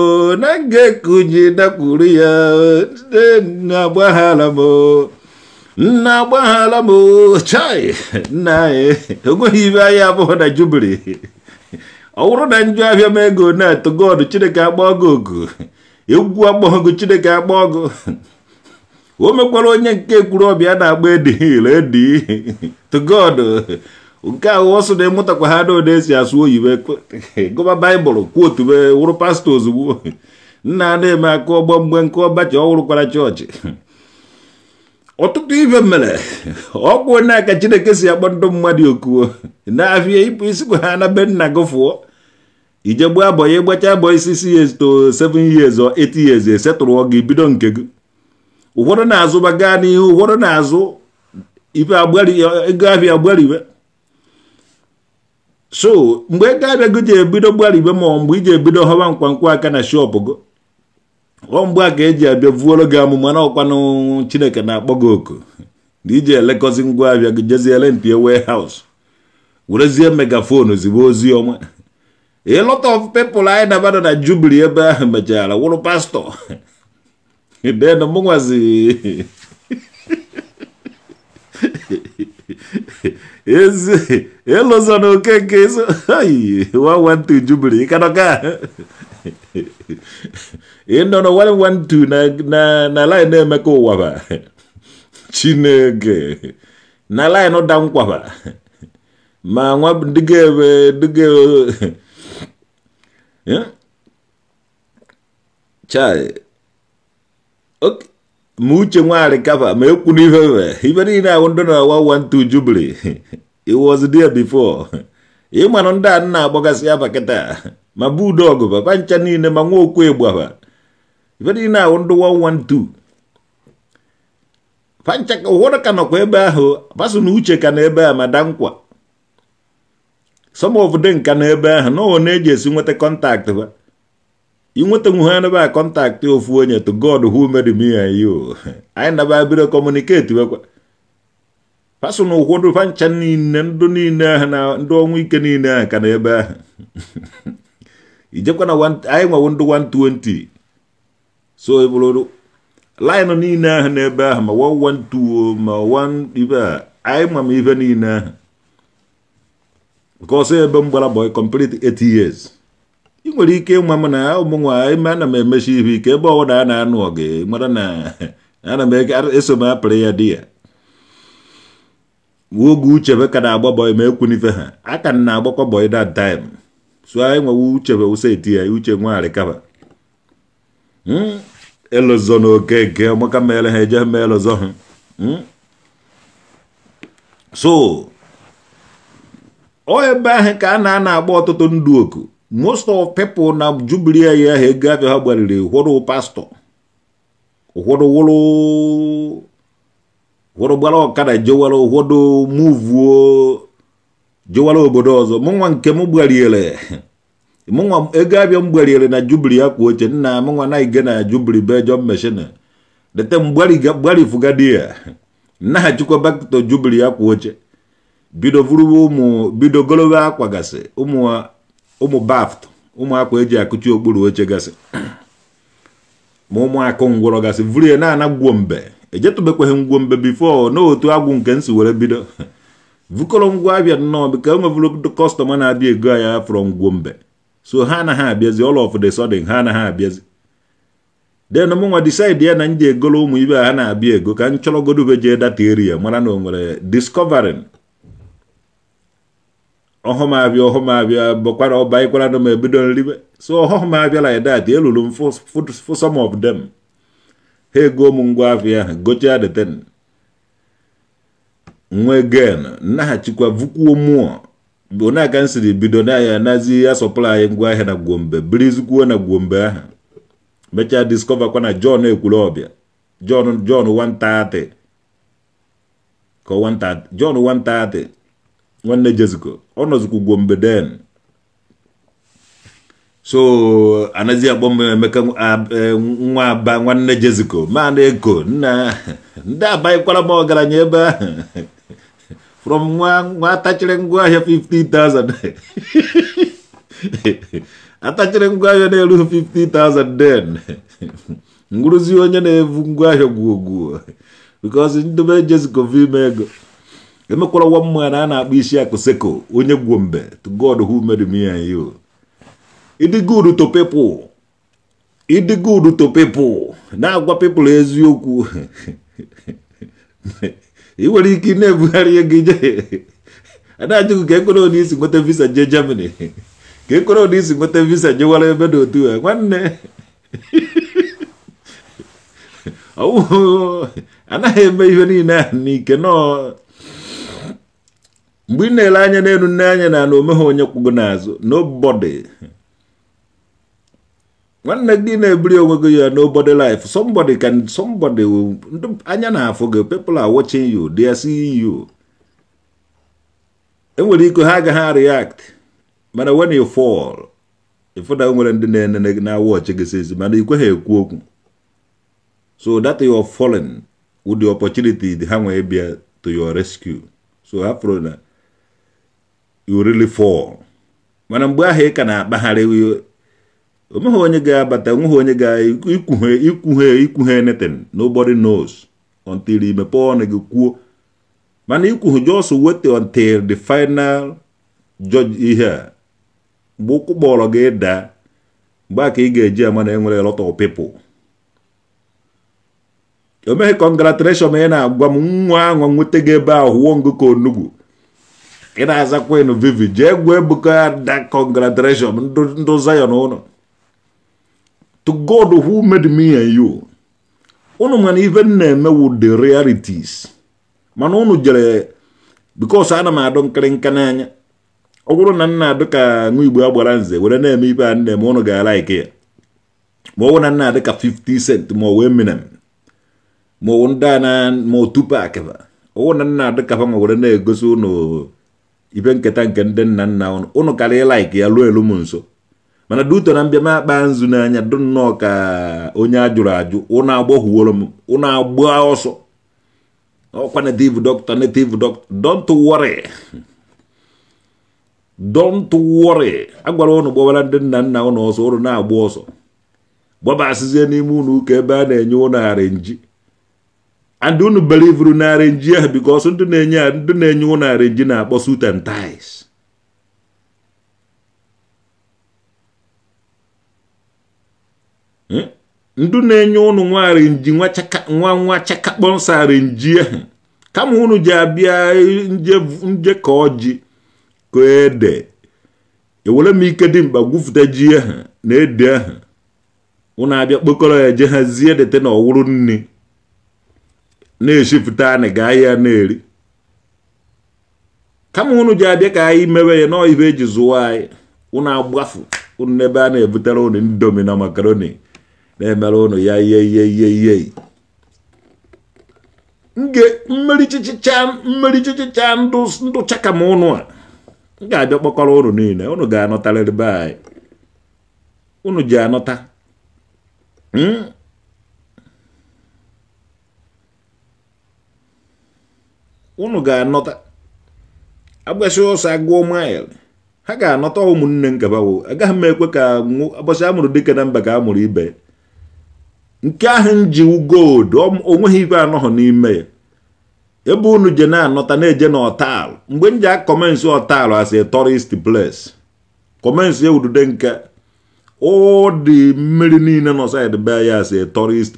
na nga kunyi dakwuru ya na agbaghala m na agbaghala m chai nna anyị eh, enweghị ibe anyị abụghị na jubiri ọ bụrụ na njọ abịa m ego na-atụ gọdụ chineke agbago ogu egwu agbọghọgụ chineke agbago o mekwara onye nke kwuru ọbịa na-agba edihil edi to nke ahụ ọsọ na ịmụtakwa ha na ode esi asụ oyibo (laughs) gụba baịbụl kwotu wụrụ pastọ ozugbo (laughs) nna na-eme akụ ọgbọ mgbe nke ọbachi ọhụrụkwara chọọchị (laughs) ọtụtụ ibe mere ọkwụ na chineke si akpọ ndụ mmadụ okuo na-afịa ịpụ isikwa ha na be nna gị fụọ ije gbuo abọ ya ịgbacha abọ isi si years to 7 years or 8 years esetụrụ gị e bido nke gị ụfọdụ na-azụ ba gaa n'ihu ụfọdụ na-azụ ife agbari ego ahịa agbariwe so mgbe ego gị ji ebido gbaribe ma mgbe iji ebido họba mkpamkpụ aka na shop gị ọ mgbe a ka eji abịa vuoro gị amụma na ọkwanụ chineke na-akpọ gị oku na iji elekọzi ngwa abịa gị jeziere mpi warehouse werezie megafon ozigbo ozi ọma a of people anyị nabado na jubili ebe ahụ mechara wụrụ pastọ den (laughs) mụnwazi (laughs) ezi ịlụzọ na okeke so ayi wawantu jubili ịkanọka ịnọ na na na na lain na-emeka ụwa chine chineke na lain da nkwa ba ma nwa dịga ebe dịga chai ok ma uche nwaanyị kapa ma ekwu n'ife ife ife niile ahụ ndị na-awa wa ntu jubili (laughs) was there before ịmanụ (laughs) ndị a na-agbagasị afa kịta ma bụ udo ọgụ papa ncha niile ma nwa okwu ịgbafa ife niile ahụ ndị 112 pancha ka ụfọdụ ka nọkwa ebe ahụ paso uche ka na ebe a ma dankwa some of them ka na ebe ahụ na ọ na-eji esi nweta kọntaktị ba inwetanwuhe anaba kọntaktị ofu onye to god who made me and you anyị naba biro kọmuniketi wekwa pasụna ụkwụdụ fancha niile ndụ niile ahụ na ndị ọnwụ ike niile ahụ ka na ebe ahụ (laughs) ijekwa na anyị nwewo ndụ 120 so e bụrụ laịnụ niile ahụ n'ebe ahụ ma 112 ma 1 ibe a anyị ma ma ife niile ahụ nke ọsọ ebe m gbara boy complete 8 years đi kêu mà ị nwere ike ịma m na ụmụnwa ime ana m emechi ihe ike ebe ọbụla a na-anụ gị mara na ana m eso m apịrị ya di ya oge uchebe ka na-agba bọị ma ekwunife ha aka na agbakọ bọị that time so anyị nwewe uchebe wụsa eti ya uche nwaarịkaba elozọ na okeke ọmaka mere ha eje ma elozọ ha so o ebe ahụ ka a na-ana agba ọtụtụ ndụ oku most of people na jubilee ya ha ego abịa ha gbariri hụrụ pastọ ụfọdụ wụrụ ụfọdụ gbara ọkada jewara ụfọdụ muvuo jewara obodo ọzọ mụnwa nke m gbariere mụnwa ego abịa m gbariere na jubili akwa oche nna mụnwa na ige na jubili be jọ meshin dete mgbarifugadi ya nnaghachikwa bakto jubili akwa oche bido vụrụwa ụmụ bido golowe akwagasị ụmụ ụmụ baft ụmụakwa akwa eji akụchi okpuru oche gasị ma ụmụaka ngwụrọ gasị vurie na-ana gwuo mbe ejetụbekwaghị ngwo mbe bifo n'otu agwụ nke nsi were bido vukọrọ ngwa abịa nnọọ bika enwevụrụ kọstọma na-abịa ego ya fọrọ ngwo mbe so ha anaghị abịazi all ọf the sudden ha anaghị abịazi den mụnwa decide ya na m ji egoro ụmụ ibe ha na-abịa ego ka m chọrọ jee data area mara na o nwere discovering ọhụm abịa ọhụm abịa bụkwara ọba ịkwara na m ebido nribe so ọhụm abịa like that eluru m for of them ha ego m ngwa afịa ha gochie the nwe gen nnaghachikwa vukwuo mụọ bụ na aka m siri bido na ya nazi ya anyị ngwa na gwombe birizikwuo na gwombe ahụ mechaa discover kwa na john ekwuru ọbịa john gombe den so anazia ya bombe meka nwa e, ba nwanne jeziko mana eko nna ndị abaikwala m ọgaranya ebe ba from nwa nwa atachiri ya 50000 atachiri ya ne lu 50000 den ngwụrụzi onye na vungwa ngwaahịa ya gwuo because because ndobe jeziko vime ego emekwara nwa mma na a na-akpọ isi akụ seko onye gwuo mbe to God who made me and you it is good to people it is good to people na-agwa people eziokwu (laughs) ị nwere ike na-ebugharị gị ije na-ajụghị ka ekwere onye isi nweta visa jee Germany ka ekwere onye isi nweta visa jewara ebe dị otu a nwanne anaghị (laughs) eme ihe niile a n'ike nọọ mgbe ị na-ele anya n'elu nne anya na na omeghe onye kwụgo n'azụ nobody nwanne gị na-ebuli onwe gị ya nobody life somebody can somebody anya na-afụ gị people are watching you they are seeing you enwere ike ha agaghị react mana when you fall ịfụda nwere ndị na-enene gị na-awọchi gị sezi mana ikwe ha ekwu okwu so that you are fallen with the opportunity ha nwee bịa to your rescue so afro na you really fall mana mgbe ahụ ị ka na-akpagharị onweghị onye ga-abata onweghị onye ga-ikwughe ikwughe ikwughe neten nobody knows until i mepee ọnụ gị kwuo mana ikwughe just wait until the final judge ihe a mgbe ụkwụ kpọrọ gị daa mgbe a ka ị ga-eji ama na enwere lot of people o meghị congratulation ma ị na-agwa m nwa ahụ nweta gị ebe ahụ wụọ ngụ ka onugbu ị na-aza kwenu vivi jee gwuo ebuka ya da congratulation ndụ Zion ụnụ to God who made me and you ụnụ mana ife m na-eme wu the realities mana ụnụ jere because ana m adụ nkịrịnka n'anya ọ bụrụ na nna adụ ka nwa igbo agbara nze were na-eme ibe a na-eme ụnụ ga ike ya ma ọ na nna adị ka 50 cent ma ọ minem ma wụ ndị a na ma otu pak ọ bụ na nna adị ka ma were na-egosi ụnụ ibe nketa nke ndị nna nna ụnụ ụnụ karịa laik ya ruo elu m nso mana duto na mbịa m akpa nzu n'anya dụ nnọọ ka onye ajụrụ ajụ ụnụ agbọhụworo m ụnụ agba ọsọ ọkwa native doctor netiv doctor don't worry don't worry agwara ụnụ gbawara ndị nna nna ụnụ ọsọ ụnụ na-agba ọsọ gbabasịzie n'ime ụnụ ụka ebe a na-enye ụnụ ara nji and unu belivuru narị arenji ya bikos ndị na-enye ndị na-enye ụnụ arenji na-akpọ suit and hmm? ndị na-enye ụnụ nwa arenji nwa nwa chakakpọ nsọ kama unu ji abịa nje ka ji ka ede ewere m ike dị mkpa gwufụta ji ahụ na ede ahụ ụnụ abịa kpokọrọ ya je hazie dete na ọwụrụ nri na-eshifụta anị gaa ya na-eri kama unu ji abịa ka anyị mewe ya nọọ ibe eji zụwa anyị ụnụ agbafu ụnụ n'ebe a na-ebutere unu indomi na makaroni na-emere ụnụ ya ihe ihe ihe ihe nge mmeri chichicha ndụ chichicha ndụ chaka ma unu a m ga-abịa kpọkọrọ niile ụnụ ga-anọtarịrị be anyị unu ji anọta hmm? unu ga-anọta agbasi ụsọ agụọ mail ha ga-anọta ụmụnne nkabawo agaghị m ekwe ka agbasi amụrụ dịka na mba ka a mụrụ ibe nke ahụ nji gold onweghị ibe anọghị n'ime ya ebe unu je na-anọta na-eje na ọtalụ mgbe m ji akọmensị ọtalụ as a tourist place kọmensị ewudude nke ọ dị mmiri niile nọ saịdị be ya as a tourist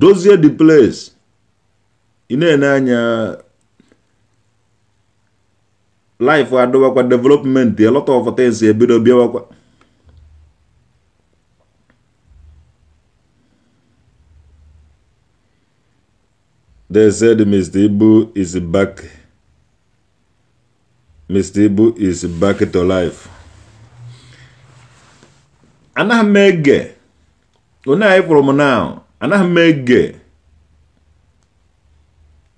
dozie the place ị na-ene anya life adịwakwa development a lot of things ebido bịawakwa they said Mr. Ibu is back Mr. Ibu is back to life anaghị m ege onye anyị kwụrụ m now anaghị m ege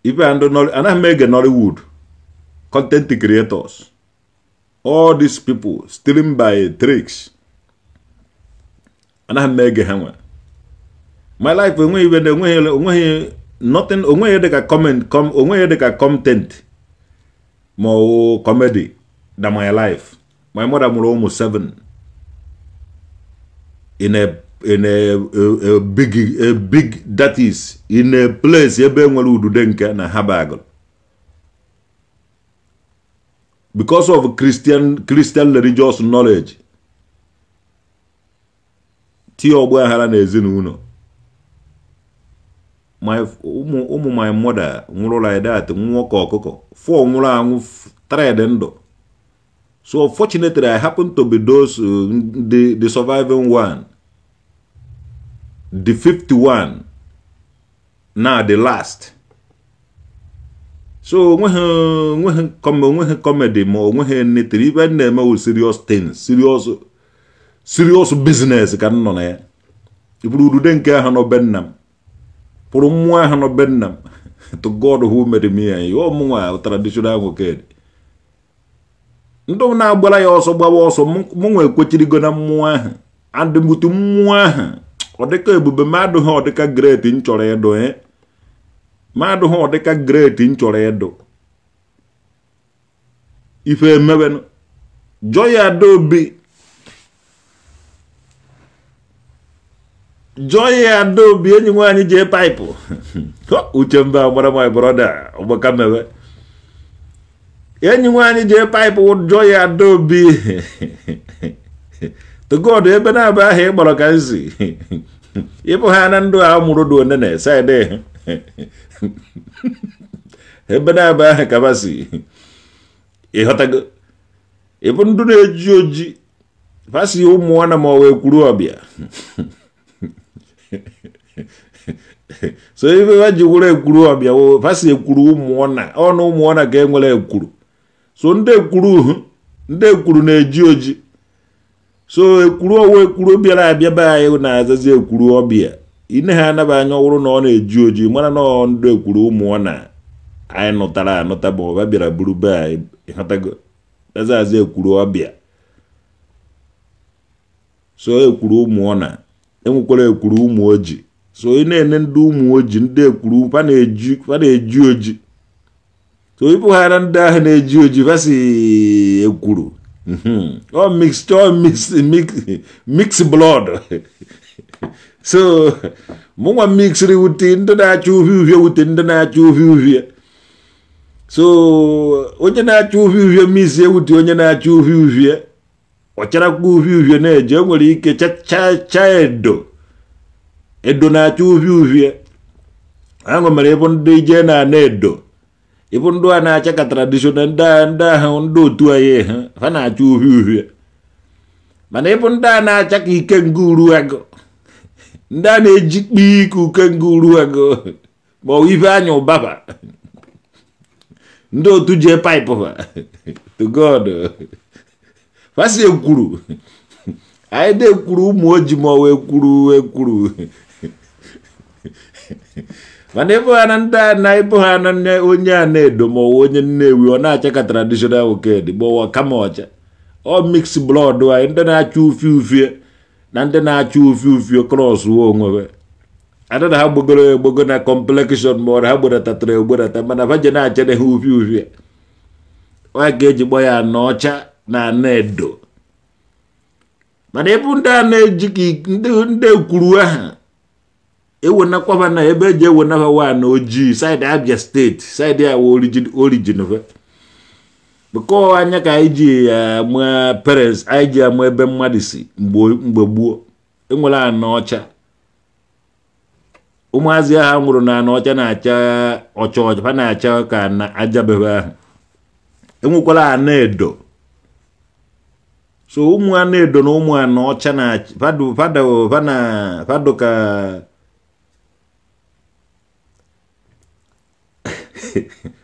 ife anaghị m ege nollywood content creators all these people stealing by tricks anaghị m ege ha nwe my life enweghị ibe na enweghị onweghị nothing onweghị dịka comment onweghị dịka content ma ọ comedy na my life my mother mụrụ ụmụ seven in a in a, a, big a big that is in a place ebe nwere udude nke na habagol because of christian christian religious knowledge tie ọgba aghara na ezinụlọ my ụmụ ụmụ my mother nwụrụ like that nwụọ ka ọkụkọ four nwụrụ anwụ tred ndụ so fortunately i happen to be those uh, the, the surviving one the 51 na the last so onweghị onweghị onweghị comedy ma onweghị netiri ibe m na-eme wụ serious thing serious serious business ka m nọ na ya ịbụrụ udude nke ahụ nọ be pụrụ mmụọ ahụ nọ be (laughs) to god who made me ya ọmụnwa traditional nwoke ndị na-agbara ya ọsọ gbawa ọsọ mụnwa ekwechirigo na mmụọ ahụ adịmbutu mmụọ ahụ ọ dịka ebube mmadụ ha ọ dịka greti nchọrọ edo ịdụ e mmadụ ha ọ dịka greti m chọrọ ịdụ ife emewenụ Joy Adaobi Joy Adaobi enyi nwaanyị jee paịpụ uche mba gbara my broda ọgbaka mewe enyi nwaanyị jee paịpụ Joy Adaobi togod ebe na aba aha ị kpọrọ ka nzi ịbụ ha na ndụ a mụrụ dị one na saịdị ebe na-abụ aha kabasi ịghọtago ịbụ ndụ na-eji oji fasi ụmụnwana ma ọ wee kwuru ọbịa so ife ha ji were ekwuru ọbịa fasi ekwuru ụmụọna ọnụ ụmụọna ka enwere ekwuru so ndị ekwuru ndị ekwuru na-eji oji so ekwuru owe ekwuru obiara abịa be anyị na-azazi ekwuru ọbịa ine ha anaba anya ọwụrụ na ọ na-eji oji mara na ọ ndụ ekwuru ụmụ ọ na anyị nụtara anụta bụ ọba bịara buru be anyị ịghọtago azazi ekwuru ọbịa so ekwuru ụmụ ọ na enwekwara ekwuru ụmụ oji so ị na-ene ndị ụmụ oji ndị ekwuru fa na-eji oji so ịpụghara ndị ahụ na-eji oji fasi ekwuru Mm-hmm. all mixed all (laughs) mix mix mix blood so mụnwa mixiri wuti ndị na-acha uhie uhie wuti ndị na-acha uhie uhie so onye na-acha uhie uhie mizie wuti onye na-acha uhie uhie ọcharakwa uhie uhie na-eje enwere nwere ike cha edo edo na-acha uhie uhie ahụ mere ịbụ ndị ije na ana edo ịbụ ndụ a na-acha ka tradishonal ndị a ndị ahụ ndị otu anyị ha na-acha uhie uhie mana ịbụ ndị a na-acha ka ike nguru agụ ndị a na-eji kpee ike uke nguru agụ ma ọ ife anya ụbaba ndị otu jee paịpụ ha to god fasi ekwuru anyị na-ekwuru ụmụ oji ma ọ wee kwuru ekwuru (laughs) mana ịbụ ha na ndị a na ịbụ ha na onye a na-edo ma ọwa onye nnewi ọ na-acha ka traditional woked gbawa kama ọcha ọ mix blood anyị ndị na-acha ufi ufie na ndị na-acha ufi ufie kros wo onwe adịna ha gbogoro egbogo na complexion ma ọra ha gbedatatara egberata mana vaje na-achede ha ufi ufie ọ ga-eji gba ya na ọcha na ana edo mana ịbụ ndị a na-eji ndị ekwuru aha ewenakwaba na ebe eji ewenaba wa na ojii saịdị abia steeti saịdị ya orijin fe bekọ anya ka anyị ji ama eh, parents anyị ji ama ebe mmadụ si mgbe gboo enwere anọ ọcha ụmụazị ha nwụrụ na anọ ọcha na-acha ọcha ọcha ha na-acha ka na ajabebe ahụ enwekwara anọ edo so ụmụ anọ edo na ụmụ anọ ọcha na fadụ fadụ ka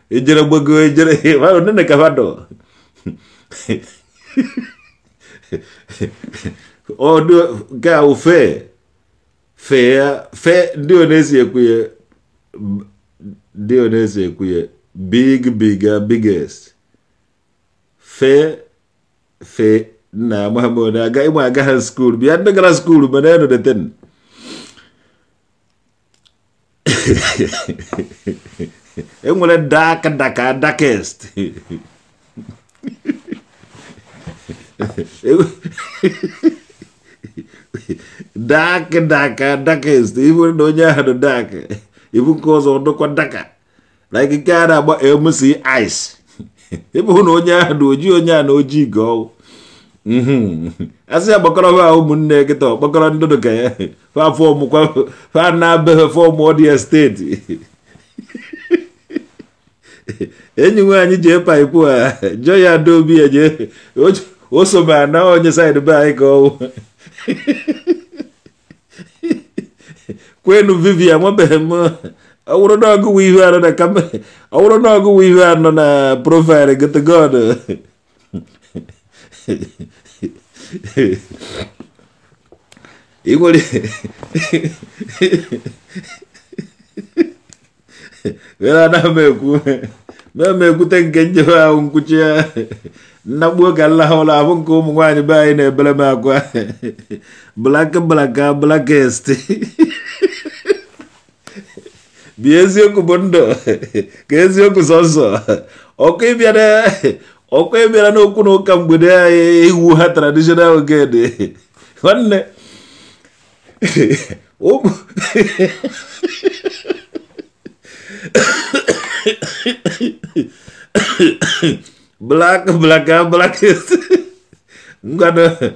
ejere gbago ejere wao nene kavado o ndio ga ufe fe fe ndio nezi ekuye ndio nezi ekuye big bigger biggest fe fe na muhammad aga imu aga ha school bi adda gara school mana yano ten enwere daka daka dakest e dak daka dakest iwere na onye ahụ dak ibu nke ọzọ ọdụkwa daka na ikike a na-agba mc ice ịbụ na onye ahụ oji onye a na oji ga ọwụ mm-hmm. asị ya gbakọrọ ha ụmụnne kịta ọkpọkọrọ ndụdụ ka ya fa fọm kwa fa na-abeghị fọm ọdịya steeti (laughs) enyiwe anyị ji ịpa ikwu a jọ ya do obi eje o so ma na onye saịdị be anyị ka ọwụ (laughs) kwenu vivian nwabeghị m ọwụrụ n'ọgụwụ ihu anọ na kama ọwụrụ n'ọgụwụ ihu anọ na profaịlụ gotogod i (laughs) nwere were na m ekwu mee te ekwute nke njebe ahụ nkwuchi ya nnagbuo ka nlaha ụlọ ahụ nke ụmụ nwanyị be anyị na-ebere m akwa blak blaka blakest bi eziokwu bụ ndụ ka eziokwu sọsọ ọkụ ịbịara n'okwu na ụka mgbede iwu ha traditional ogede black, black, black. I'm gonna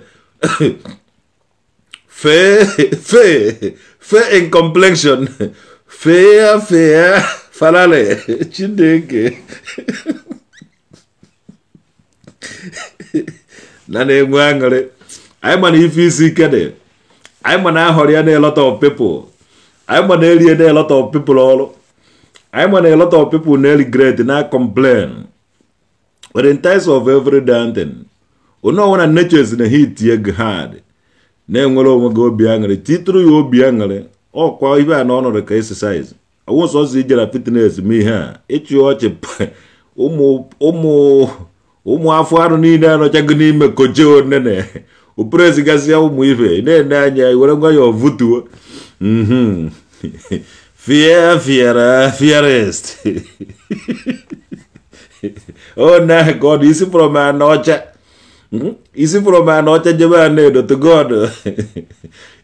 fair, fair, fair in complexion. Fair, fair, falale, chineke. na na-enwe aṅụrị anyị ma na ife isi ike dị anyị ma na ahọrọ ya na of people I'm an alien erie na-elọta of people all I mean, a lot of people nearly great na complain. But in times of every damn thing, you know when nature is in a heat you hard. Na enwere onwe gị obi aṅụrị titụrụ ya obi aṅụrị ọkwa ibe a na ọ nọrọ ka exercise awụsọ ọsọ ijere fitnes ma ihe a ịchụ ọchị ụmụ afọ anụ niile n'ime koje onene operezigazia umu ife na-ene anya were ngwa ya Wer, Vieira, Vieira oh, na God, isi pụrụ m anọcha. ọcha pụrụ a na jebe anedo God.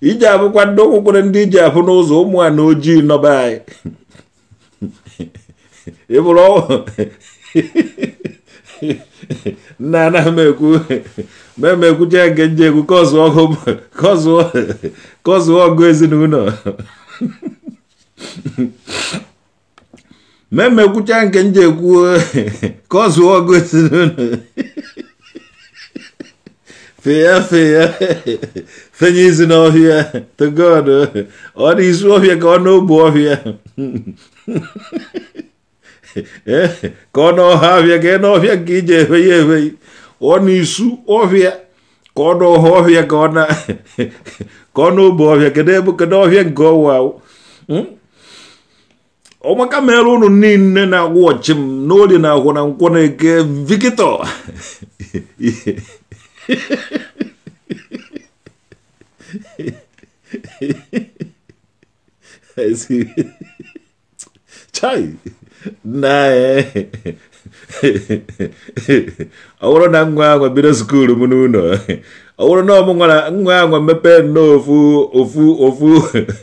iji abụkwa (laughs) ndị ụkwụkwere ndị iji abụ (laughs) n'ụzọ ụmụ a na ojii nọba anyị. ị bụrụ ọnwụ. nna anaghị m ekwu ma m ekwucha nke nje ekwu ka (laughs) ọzụọ ezinụlọ ma emekwucha nke m ji ekwu ka ọ zụọ ọgụ feya feya fenye izi n'ọhịa to ọ dị izu ọhịa ka ọ n'ogbu (laughs) eh, ọhịa ka ọ n'ọha ọhịa ka ị n'ọhịa iji efe ya efe ọ n'isu ọhịa ka ọ n'ọha ọhịa ka ọ na (laughs) ka ọ n'ogbu ọhịa kedu ebe ọhịa nke ọwa hmm? omakamela no ninne na noli nakhona nkoneke vikito chai ngwa aulo bira bila munu no ọwụrụ na ọmụ nwa ya nwa mepee nnọọ ofu ofu ofu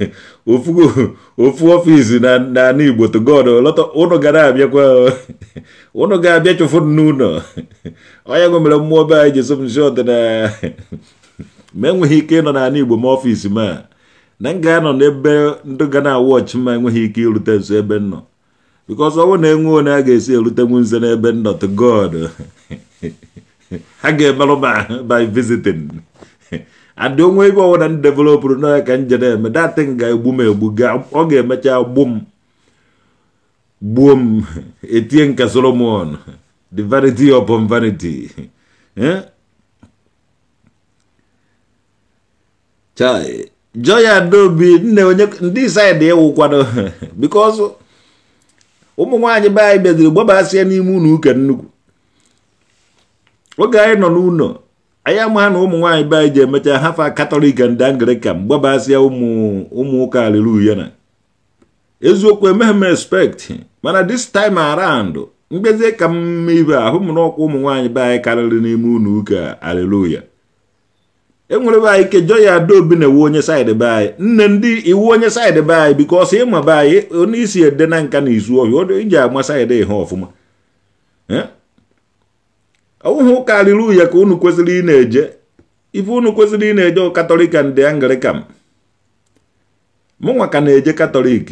(laughs) ofu ofu ọfisi na Igbo lọta (laughs) ụnụ ga na-abịakwa ụnụ ga-abịa chụfụ n'ụlọ onye nwe mere mmụọ be anyị ji so m (laughs) ma enweghị ike ịnọ n'ala Igbo ma ọfisi ma na m ga-anọ n'ebe ndị ga na-awụ ma enweghị ike irute nso ebe m nọ ọ bụrụ na enwe onye a ga-esi erutenwu nze n'ebe nnọ nọ ha ga-emerụ by visiting and onwe ebe ọwụna m developụrụ n'ọya ka m jere eme datin ga-egbu m egbu ọ ga-emecha gbu m gbuo m etie nka solomon the vanity of vanity chai joya dobi nne onye ndị saịdị ịwụkwado (laughs) because ụmụ nwaanyị be anyị bịaziri gbabasịa n'ime ụlọ ụka nnukwu oge anyị nọ n'ụlọ anyị ama na ụmụ nwaanyị be anyị ji emecha hafa katọlik and anglican gbabasịa ụmụ ụka aliluya na eziokwu emeghe m expect mana this time around mgbezie ka mma ibe ahụ m n'ọkwa ụmụ nwaanyị be anyị karịrị n'ime ụlọ ụka aliluya enwere be anyị kejọ ya adaobi na-ewu onye saịdị be anyị nne ndị iwu onye saịdị be anyị ọsọ ịma be anyị onye isi ede na nka na izu ọhịa iji agba saịdị ha ọfụma eh? ọwụhụ ụka ya ka unu kwesịrị ị na-eje ife unu kwesịrị ị na-eje katọlikan dị anglikan mụnwa ka na-eje katọlik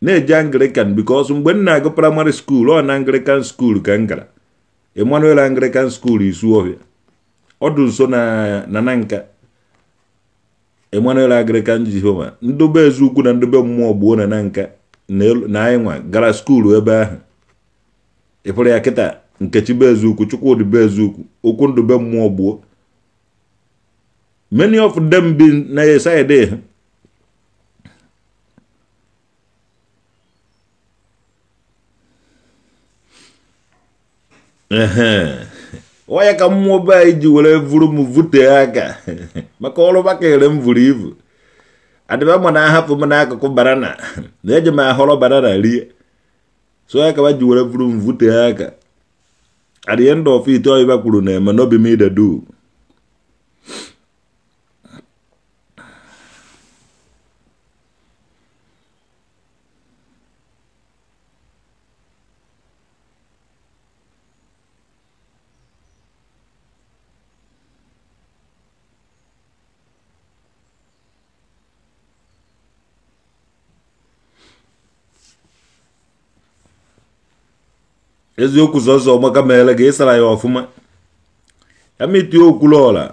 na-eje anglikan bikos mgbe m na-agụ praịmarị skuul ọ na anglikan skuul ka m gara emanuel anglikan skuul isuohia ọdụ nso na nananka emanuel anglikan jehova ndobe eziukwu na ndobe mmụọ gbuo na nanka na anyị nwa gara skuulu ebe ahụ ịpụrụ ya kịta nkechi bụ eziukwu chukwudi be eziukwu okwu ndụ be mmụọ gbuo many of them bi na side ha waya ka mmụọ be anyị ji were vuru m aka maka ọrụ ere m vuru ivu adịba ma na ahapụ m n'akụkụ banana na eji m ahọrọ banana rie so ya ka ma ji were vuru m aka at the end of it all you do no be made a do eziokwu sọsọ ọgbaka mere ga ịsara ya ọfụma ya okwu okwuluọla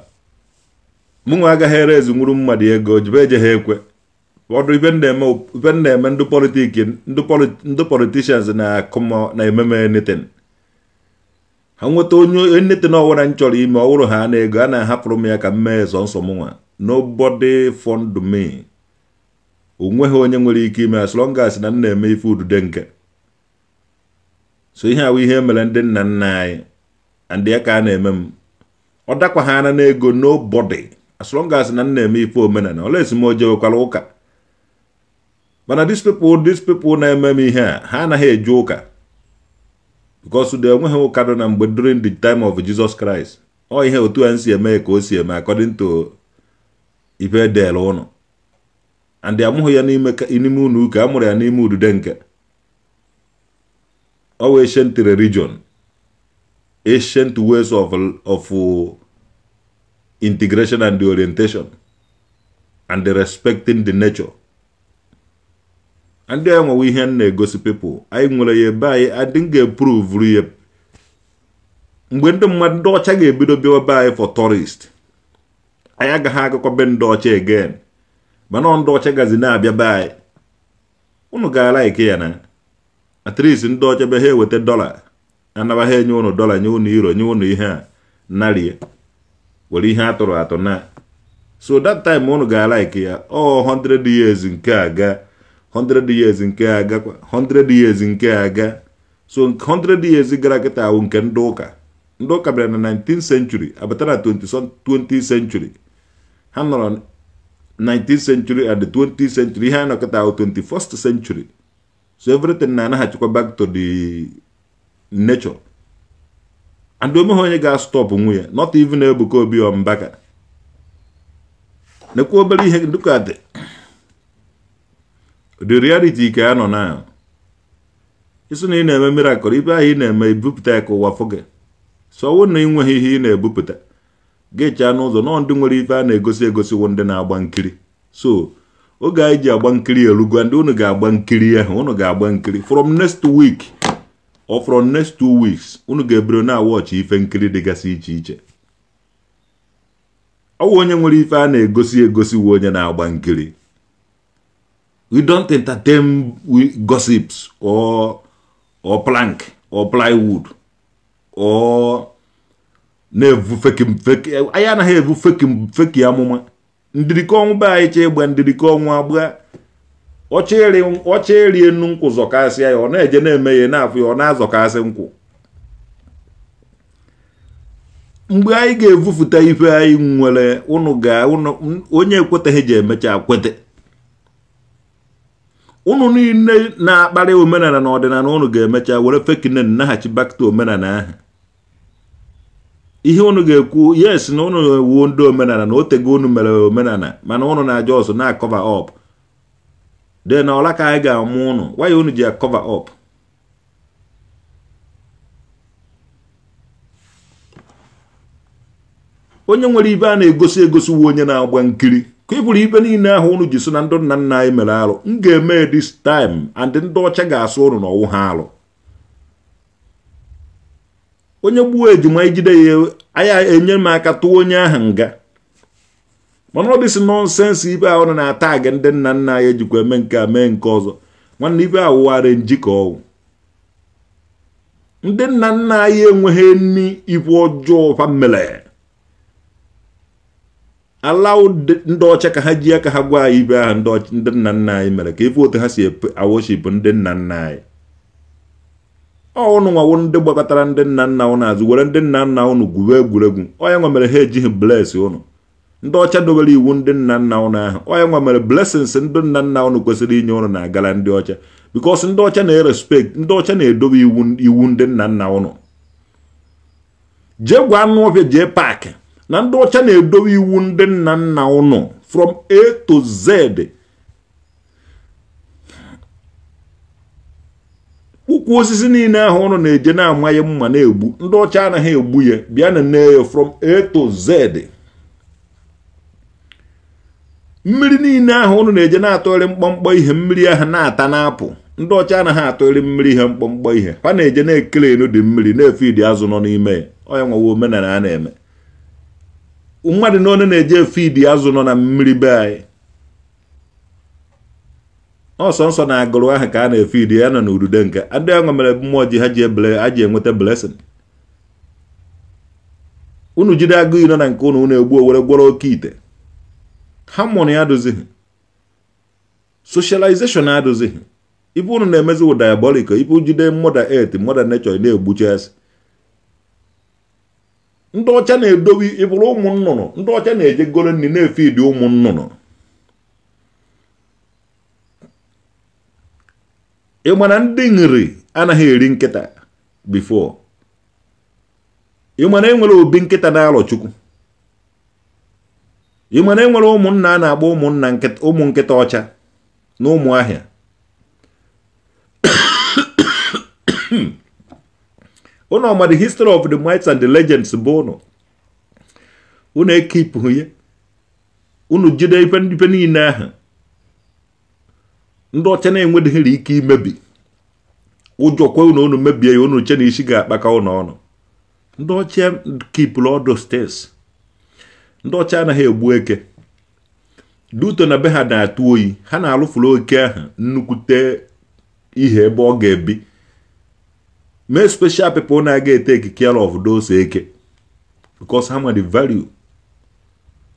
mụnwa agaghị ere ezi nwuru mmadụ ego jibe eje ha ekwe ọdụ ife na-eme ndụ politiki ndụ politishans na-ememe neten ha nweta onye neten ọwụra m chọrọ ime wụrụ ha na ego a na-ahapụrụ m ya ka m mee sọ nsọ mụnwa nobody fund me onweghị onye nwere ike ime as long as na m na-eme ife udude nke so ihe awụ ihe mere ndị nna nna anyị ndị aka a na-eme m ọ dakwa ha na n'ego nobody as long as na m na-eme ife omenala ọla esi m ojewekwara ụka mana these people these people na-eme m ihe a ha anaghị eje ụka because de enweghị ụka dọ na mgbe during the time of Jesus Christ ọ ihe otu a si eme ka o si eme according to ife edere ụnụ and amụghị ya n'ime ụlọ uka a mụrụ ya n'ime udude nke our ancient religion, ancient ways of, of uh, integration and the orientation, and the respecting the nature. And then we hear na gossip people, anyị nwere ya ebe anyị adị ga prove ya mgbe ndị mmadụ ndị ọcha ga-ebido bịa ebe anyị for tourist anyị agaghị agakọ be ndị ọcha again mana ndị ọcha gazi na-abịa be anyị unu ga like ya na at least ndị ọcha be ha eweta dọla anaba ha enye ụnụ dọla nye ụnụ iro nye ụnụ ihe a narie were ihe atụrụ atụ na so that time ụnụ ga-alaiki ya ọ 100 years nke aga ga years nke aga ga years nke aga so 100 years gara kịta awụ nke ndị ụka ndị ụka bịara na 19th century abatara na 20th century ha nọrọ 19th century and 20th century ihe a nọ kịta awụ 21st century so everything na-anaghachikwa back to the nature and omeghe onye ga stop nwunye not even Ebuka Obi ọ nekwa obere ihe dịka dị the reality ka ya nọ na isi na ị na-eme miracle ibe ahụ ị na-eme ibupụta ya ka ụwa fụ gị so na ị nweghị ihe ị na-ebupụta ga n'ụzọ nọọ ndị nwere ife a na-egosi egosi wụ ndị na-agba nkiri so oge anyị ji agba nkiri erugo ndị unu ga-agba nkiri ahụ ụnụ ga-agba nkiri from next week or from next two weeks unu ga-ebiro na-awọchị ife nkiri dịgasị iche iche ọ wụ onye nwere ife a na-egosi egosi onye na-agba nkiri we don't entertain gossips or or plank or plywood or na-evu feki feki anyị anaghị evu feki feki amụma ndiriko ọnwụ be anyị chee gba ndiriko ọnwụ agba ọcha erie nnu nkwụ zọkasịa ya ọ na-eje na-eme ya na-afụ ya ọ na-azọkasị nkwụ mgbe anyị ga-evufụta ife anyị nwere ụnụ ga onye ekweteghị ji emecha kwete ụnụ niile na-akparị omenala na ọdịnala ụnụ ga-emecha were fekinne naghachi bakta omenala ahụ ihe unu ga-ekwu yes na unu ewuo ndị omenala na otego unu mere omenala mana unu na-aja ọsọ na-akọva ọp de na ọla ka anyị ga-amụ unu waya unu ji akọva ọp onye nwere ibe a na-egosi egosi uwe onye na-agba nkiri ka ị bụrụ ibe niile ahụ unu ji so na ndị nna nna anyị mere arụ m ga-eme this time and ndị ọcha ga-asụ unu na ọwụ ha arụ onye gbuo ejima ijide ya anya enye m aka tụwa onye ahụ nga mana ọ dịsị nọnsensị ibe ahụ na-ata gị ndị nna nna anyị ejikwa eme nke a mee nke ọzọ nwanne ibe awụgharị njikọ ọwụ ndị nna nna anyị enweghị nri ibu ọjọọ famile ndị ọcha ka ha ji ka ha gwa anyị ibe ahụ ndị nna nna anyị mere ka ife otu ha si awoshipụ ndị nna nna anyị ọnụ nwa ndị gbakọtara ndị nna nna ụnụ azụ were ndị nna nna ụnụ gwuwe egwuregwu onye nwa mere ha ejighị bles ụnụ ndị ọcha dobere iwu ndị nna nna ụnụ ahụ onye nwa mere ndị nna nna ụnụ kwesịrị inye ụnụ na-agara ndị ọcha bikos ndị ọcha na-erespect ndị ọcha na-edobe iwu ndị nna nna ụnụ jee gwa anụ jee paakị na ndị ọcha na-edobe iwu ndị nna nna ụnụ from a to z ụkwụ osisi niile ahụ ụnụ na-eje na-amaghị mma na-egbu ndị ọcha anaghị egbu ya bịa na nne ya from A to Z mmiri niile ahụ ụnụ na-eje na-atọgharị mkpọmkpọ ihe mmiri ahụ na-ata na-apụ ndị ọcha anaghị atọgharị mmiri ihe mkpọmkpọ ihe ha na-eje na-ekele enu dị mmiri na-efe idi azụ nọ n'ime ya ọya nwawa omenala a na-eme mmadụ na one na-eje efe idi azụ nọ na mmiri be anyị ọsọ nsọ na-agụrụ ahụ ka a na-efe idi ya nọ n'udude nke ndị enwe mere mmụọ ji ha ji ebele ha ji enweta blessing unu jide agụ ino na nke ụnụ ụnụ egbu owere gwọrọ oke ite ha mụrụ ya adụzighị socialization adụzighị ibe ụnụ na-emezi wụ diabolic ibu jide mother et mother nature na-egbucha asị ndị ọcha na-edobe ịbụrụ ụmụ nnụnụ ndị ọcha na-eje golo nri na-efe ụmụ nnụnụ ịma ndị nri anaghị eri nkịta bifo ịma enwere obi nkịta na-alọ chukwu ịma enwere ụmụnna a na-agba ụmụnna ụmụ nkịta ọcha na ụmụ ahịa (coughs) unu ọma the history of the mites and the legends bụ unu unu ekipụ ya unu jide ife niile ahụ ndị ọcha na-enwedịghịrị ike imebi ụjọ kwe unu unu mebie ya unu che na isi ga-akpaka unu ọnụ ndị ọcha kipụrụ ọdụ steeti ndị ọcha anaghị egbu eke duto na be ha na-atụ oyi ha na-alụfuru oke ahụ nnukwute ihe ebe ọ ga-ebi mee special people na-aga ete care of those eke because ha nwere value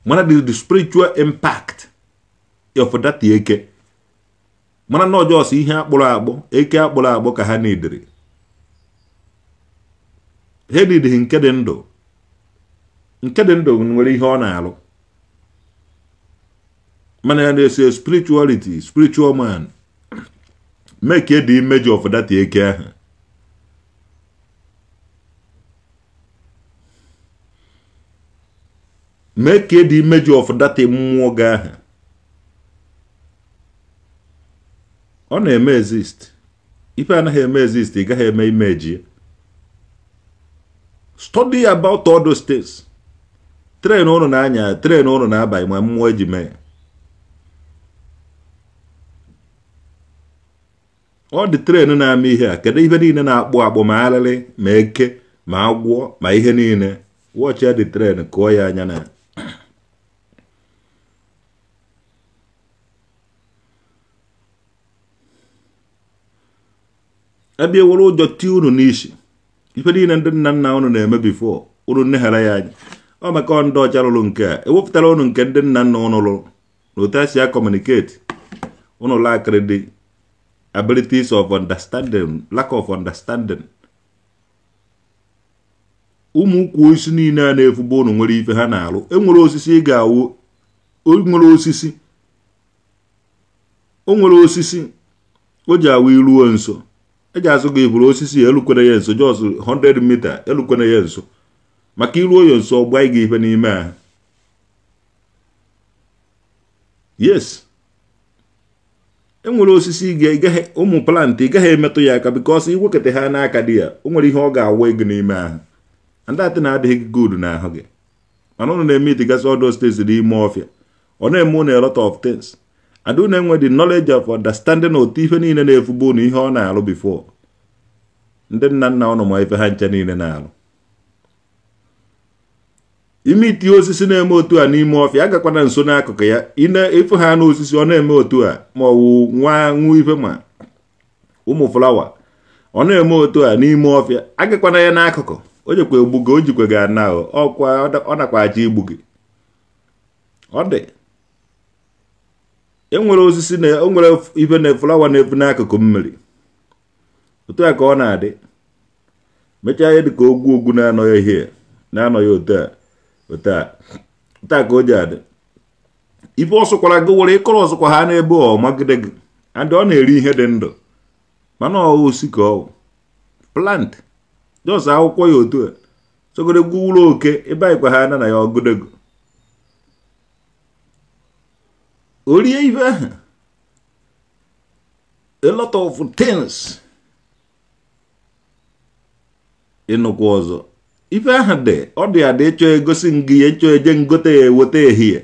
mana the spiritual impact of that eke mana na ọjọọsọ ihe akpụrụ akpụ eke akpụrụ akpụ ka ha na-edere ha nidiri nke dị ndụ nke dị ndụ nwere ihe ọ na-alụ mana ya na-ese spirituality spiritual man make e the image of that eke ahụ make e the image of that mmụọ gị ahụ ọ na-eme exist ife anaghị eme exist ị gaghị eme imeji study about all those tren ụnụ na-anya tren ụnụ na aba ma mmụọ eji mee ọ dị tren na-ama ihe a kedu ihe niile na-akpụ akpụ ma alịlị, ma eke ma agwọ ma ihe niile wọchị ya dị tren kụọ ya anya na ya ebe ewere ụjọ tie unu n'isi ife niile ndị nna nna unu na-eme bifo unu nneghara ya anyị ọ maka ndị ọcha lụrụ nke a ewepụtara unu nke ndị nna nna ụnụ lụrụ na otu esi akọmuniketi unu lakịrị dị abilitis of understanding lack of understanding ụmụ ukwu osisi niile a na-efugbo unu nwere ife ha na-alụ enwere osisi ị ga-awụ onwere osisi o nwere osisi o ji awụ iruo nso eji azụ gị bụrụ osisi elukwere ya nso jọs 100 mita elukwere ya nso maka iruo ya nso ọ gị ihe n'ime ahụ yes enwere osisi ụmụ plantị ị gaghị emetụ ya aka because iwekọta ha n'aka dị ya o nwere ihe ọ ga-awa gị n'ime ahụ andatị na-adịghị gị na ahụ gị mana ụnụ na-eme itigasị ọdụ steeti n'ime ọfịa ọ na-eme ụnụ a of things adu na-enwe the knowledge of understanding otu ife niile na-efugbu unu ihe ọ na-alụ bifo ndị nna nna ọ ma ife ha nche niile na-alụ ime itinye osisi na-eme otu a n'ime ọfịa agakwana nso n'akụkụ ya ine ịfụ ha n'osisi ọ na-eme otu a ma ọ wụ nwa nwụ ife ma ụmụ flawa ọ na-eme otu a n'ime ọfịa agakwana ya n'akụkụ o jekwa egbu gị o jikwa gị ana ọkwa ọ nakwa aja igbu gị ọ dị enwere osisi na enwere ibe na flawa na-efu n'akụkụ mmiri otu a ka ọ na-adị mechaa ihe dịka ogwu ogwu na-anọghị ihe na-anọghị otu a otu a ka o ji adị ife ọsụkwara gị were ịkọrọ ọsụkwa ha n'ebe ọ magide gị and ọ na-eri ihe dị ndụ mana ọ osi ka ọ plant jos akwụkwọ ya otu a sogode gwuwuru oke ebe anyịkwa ha na na ya ọgụdego o rie ibe ahụ a lot of things ịnụkwu ọzọ ife ahụ dị ọ dị ada ịchọ egosi ngị ịchọ eje ngote ya eweta ehihie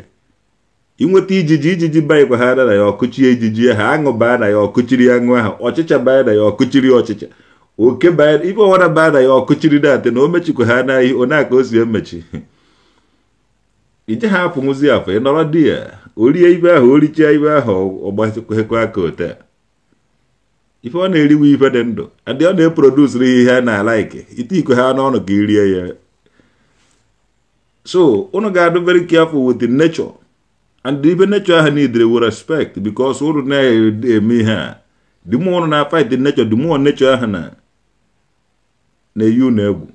inweta ijiji ijiji baịkwaghara na ya ọkụchie ijiji ahụ aṅụ baa na ya ọkụchiri aṅụ ahụ ọchịcha baa na ya ọkụchiri ọchịcha oke baa ife ọwara baa na ya ọkụchiri datị na o mechikwa ha na ihe onye aka o si emechi (laughs) ije ha afụ afọ ị nọrọ di ya orie ibe ahụ o ibe ahụ ọ gbaekwekwa aka ote ife ọ na-eriwe ife dị ndụ adị ọ na-eprodusiri ihe a na-alaiki ite ikwe ha n'ọnụ ka i ya so unu ga-adụ very careful with the nature and ibe nature ahụ niidere with respect because unu na-eme ihe a the more unu na-fight the nature the more nature ahụ na na-eyi unu egwu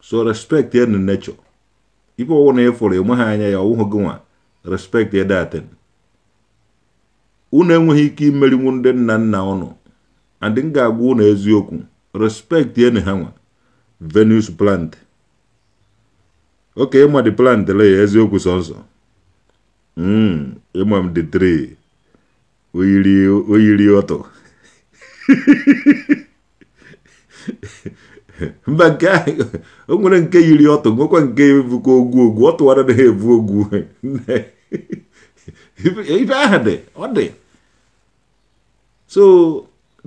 so respect ya na nature ife ọwụ na ịfụrụ enwe anya ya ọwụhụ gị nwa respect ya unu enweghị ike imerinwu ndị nna nna ụnụ andị m ga-agwa ụnụ eziokwu respect enu ha nwa venus plant oke ịma dị plant le ya eziokwu sọsọ hmm, ịma m dị tri oyiri ọtọ (laughs) (laughs) mba nke o nwere nke yiri ọtụ nwekwa nke bụkwa ogwu ogwu ọ tụwara na ha ebu ogwu (laughs) ibe ahụ dị ọ dị so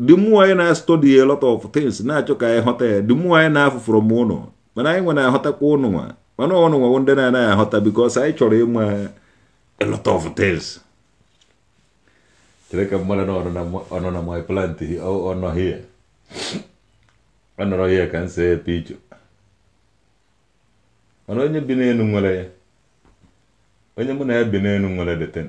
the more anyị na-study a lot of things na-achọ ka anyị ghọta ya the more anyị na-afụ from ụnụ mana anyị nwere aghọtakwa ụnụ nwa mana ụnụ nwa ndị na-anaghị aghọta because anyị chọrọ ịma a lot of things chere ka mmadụ na ọnọ na my plant ọ nọ ọnọrọ ya ka nsi epe icho mana onye bi n'elu nwere ya onye mụ na ya bi n'elu nwere deten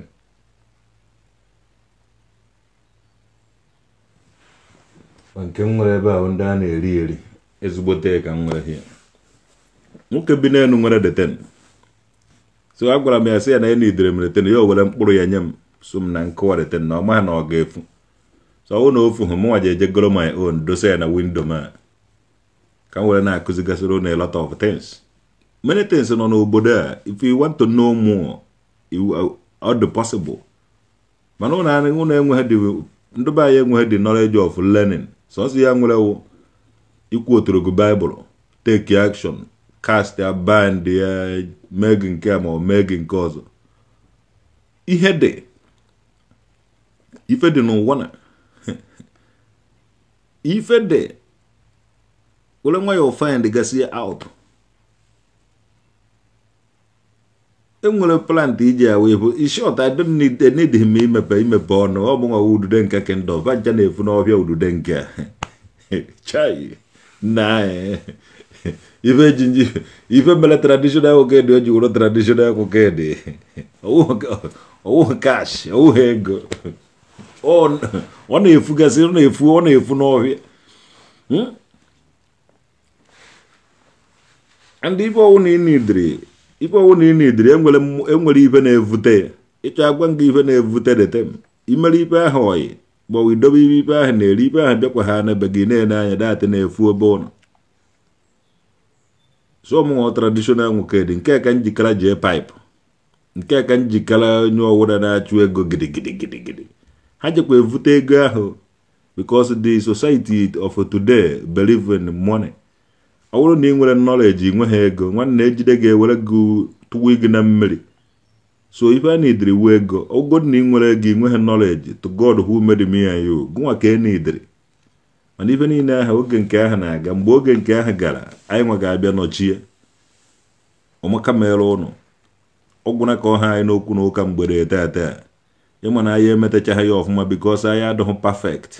nke m nwere ebe ahụ ndị a na-eri eri ezigbote ka m nwere ya nwoke bi n'elu nwere deten so a gwara m ya sị ya na ya na idere m deten ya o were mkpụrụ ya nye m so m na nkụwa deten na ọ maghị na ọ ga-efu so ọ bụrụ na ofu hụ mụnwa ji eje goro my own dosa ya na windo m ka m were na-akụzigasịrị unu a lot of things many things nọ n'obodo a if you want to know more ọ dị uh, possible mana unu enweghị dị ndị be enweghị dị knowledge of learning sọsọ ya nwere wụ ikwu otorogo baịbụl take action cast ya bind ya mee gị nke ma ọ mee gị nke ọzọ ihe dị ife dị n'ụwa na (laughs) ife dị were nwa ya ofind gasị out e enwere plant iji ya wee bụ ishort I don't need need imepe imepe ọnụ ọ bụ nwa udude nke kendo vaja na-efu n'ọbịa udude nke chai na (laughs) ife jinji ife mere traditional okedi o ji wụrụ traditional okedi ọwụ kash ọwụ ego ọ na-efugasị ọ na-efu ọ na-efu n'ọhịa ndị ife ọwụ na inidiri ife ọwụ na inidiri enwere ife na-evute ịchọ agwa nga ife na-evute detem imere ife ahụ oyi gbawa idobe ibe ife ahụ na-eri ife ahụ bịakwa ha n'ebe gị na-ele anya datị na-efu obe ụlọ so ọmụnwa tradishonal nwoke dị nke ka njikere jee paịpụ nke ka njikere onye ọwụda na-achụ ego gidigidigidi ha jekwa evute ego ahụ because the society of today believe in money. ọ bụrụ na ị nwere nọleji nwe ha ego nwanne ejide ga-ewere gị tụwa gị na mmiri so ife a na wu ego ogo na ị nwere ego i nwe ha nọleji to god who made me and you gụnwa ka e na mana ife niile aha oge nke aha na-aga mgbe oge nke ahụ gara anyị nwa ga-abịa nọchie ọmaka mere ụnụ ọgwụna ka ọha anyị n'okwu na ụka mgbede taa ịma na anyị emetachaghị ya ọfụma bikos anyị adịghị perfect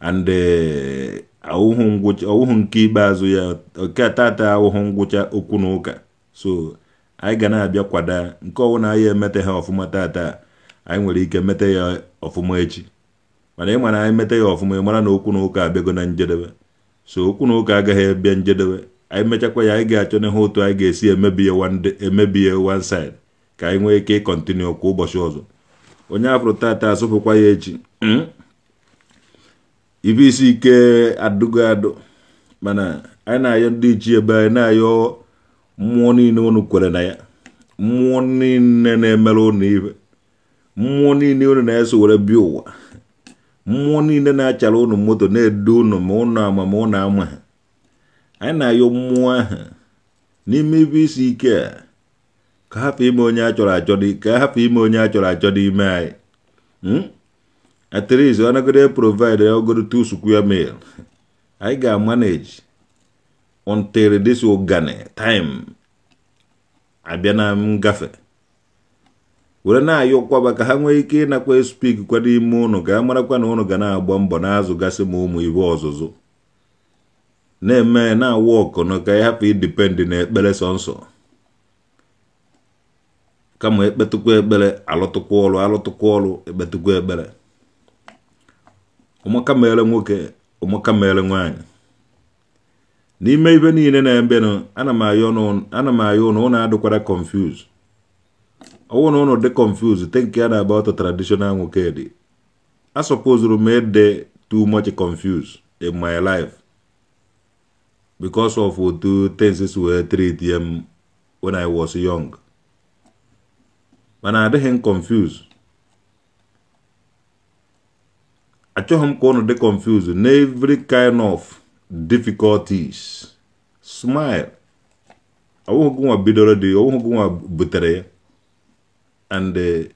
and eh, awụhụ ngwụcha nke ikpeazụ ya nke tata awụhụ ngwụcha okwu na ụka so anyị ga na-abịa kwada nke na anyị emete ha ọfụma tata anyị nwere ike mete ya ọfụma echi mana ị mana anyị mete ya ọfụma ị mara na okwu na ụka abịago na njedebe so okwu na ụka agaghị abịa njedebe anyị mechakwa ya anyị ga-achọ na n'ihe otu anyị ga-esi emebi ya emebi ya one side ka anyị nwee ike ịkọntinu kwa ụbọchị ọzọ onye afụrụ tata asụpụkwa ya echi hmm? ibe isi ike adụgo adụ mana anyị na-ayọ ndị ebe anyị na-ayọ mmụọ niile unu kwere na ya mmụọ niile na-emere unu ibe mmụọ niile unu na-eso were bịa ụwa mmụọ niile na-achara unu moto na-edu unu ma unu ama ma unu ama ha anyị na-ayọ mmụọ ahụ n'ime ibe isi ike a ka hapụ ime onye a chọrọ achọ ka hapụ ime onye a chọrọ achọ n'ime anyị hmm? at least onagode provide ogodo two square meal anyị ga-amanage until this ogane time abịa na ngafe were na-ayọkwaba ka ha nwee ike ịnakwa spik kwa ime unu ka a marakwa na ụnụ ga na-agba mbọ na gasi ma ụmụ ibe ọzụzụ na-eme na-awa ọkụnụ ka ya na ekpere sọnsọ kama ekpetụkwa ekpere alụtụkwa ọrụ alụtụkwa ọrụ ekpetụkwa ekpere ụmụ mere nwoke ụmụaka nwanyị nwaanyị n'ime ibe niile na-ebenụ ana m ayọ ụnụ ụnụ adịkwara confuse ọwụ na ụnụ dị confuse te nke ya na-agba ọtọ traditional nwoke dị a sọpozuru m ịdị too much confuse in my life because of otu things were treat m when I was young mana adịghị m confuse achọghị m ka ụnụ dị confused na every kind of difficulties smile ọwụghị gị nwa bidoro dị ọwụghị gị nwa butere ya and eh,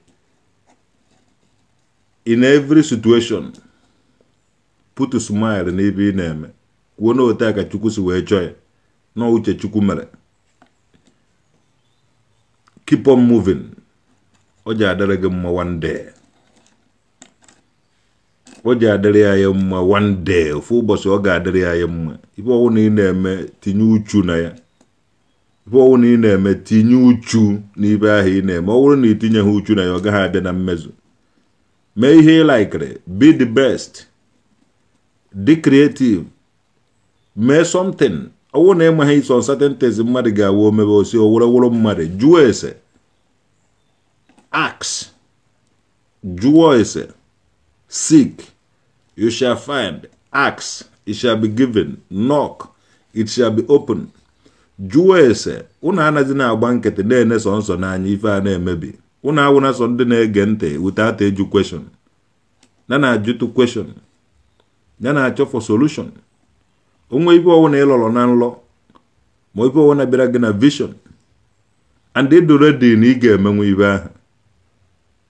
in every situation put smile n'ebe ị na-eme kwuo na ote ka chukwu si wee chọọ ya na uche chukwu mere keep on moving ọ ji adịrị gị mma one day o ji adịrị ya ya mma one day ofu ụbọchị ọ ga-adịrị ya ya mma ife ọwụ na ị na-eme tinye uchu na ya ife ọwụ na ị na-eme tinye uchu n'ibe ahụ ị na-eme ọ bụrụ na tinye ha uchu na ya ọ gaghị abịa na mmezu mee ihe ị laikiri be the best dị creative mee ọ ọwụ na enweghị iso certain things mmadụ ga-awa omebe osi owuroworo mmadụ jụọ ese ask jụọ ese sik you shall find. Ask, it shall be given. Knock, it shall be open. jụọ ese unu anaghị na-agba nkịtị na-ene sọ nsọ n'anya ife a na-emebi unu awụna sọ ndị na-ege ntị without eju question na na-ajụtụ question na na-achọ for solution onwe ife ọwụna ịlọrọ na nlọ ma ife ọwụna bịara gị na vision and ịdụ redi na ị ga-emenwe ibe ahụ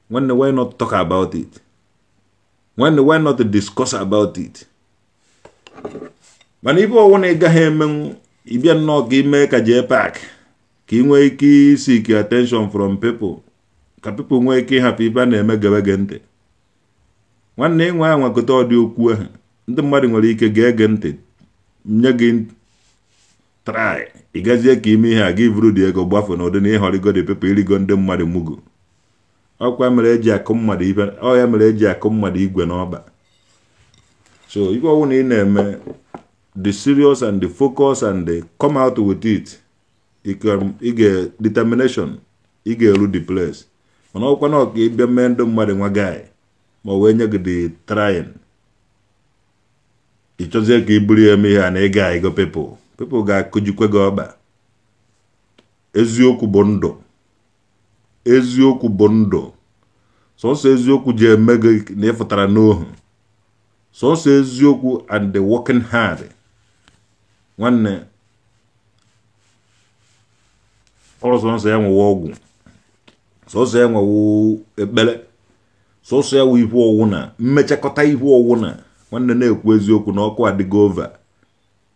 nwanne why not talk about it nwanne why not discuss about it mana ibe ọnwụ na ị gaghị emenwu ịbịa nnọọ ka ime ka jee pak ka ị nwee ike isik attention from people ka people nwee ike ịhapụ ibe a na-eme gebe gị ntị nwanne ịnwe a nwekọta ọdị okwu ahụ ndị mmadụ nwere ike ga-ege ntị nye gị trai ịgazie ka ime ihe a gị bụrụ dị ego gbafụ na ụdị na ịhọrịgo dị people irigo ndị mmadụ mugu ọkwa mere eji akụ mmadụ ibe ọya mere eji akụ mmadụ igwe n'ọba so ife ọwụ na ị na-eme the serious and the focus and the come out with it ị ga determination ị ga-eru the place mana ọkwa na ọka ịbịa mee ndụ mmadụ nwa guy ma wee nye gị the trying ị chọzie ka i buru ya eme ihe a na ịga ego people people ga-akụjikwe gị ọba eziokwu bụ ndụ eziokwu bụ ndụ sọsọ eziokwu ji eme gị na ịfụtara n'ohu sọsọ eziokwu and the working hard nwanne ọrụsọ sọsọ ya nwewe ọgwụ sọsọ ya nwewe ekpere sọsọ ya nwe ihu ọwụ na mmechakọta ihu ọwụ na nwanne na-ekwu eziokwu na ọkụ adịgo ova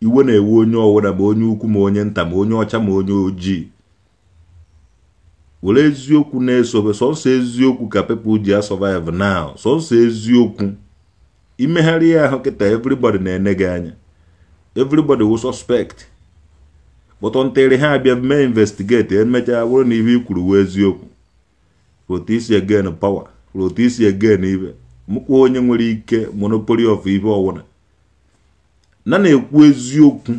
iwe na-ewe onye ọwụda ma onye ukwu ma onye nta ma onye ọcha ma onye ojii were eziokwu na-esobe sọsọ eziokwu ka people ji survive now sọsọ eziokwu imegharị ya ahụ kịta everybody na-ene gị anya everybody will suspect kpọtọ ntịrị ha abịa mee investigate emechaa bụrụ na ihe ikwuru kwuru eziokwu rotisi again power rotisi again ibe mụkwa onye nwere ike monopoly of ibe ọwụla na na-ekwu eziokwu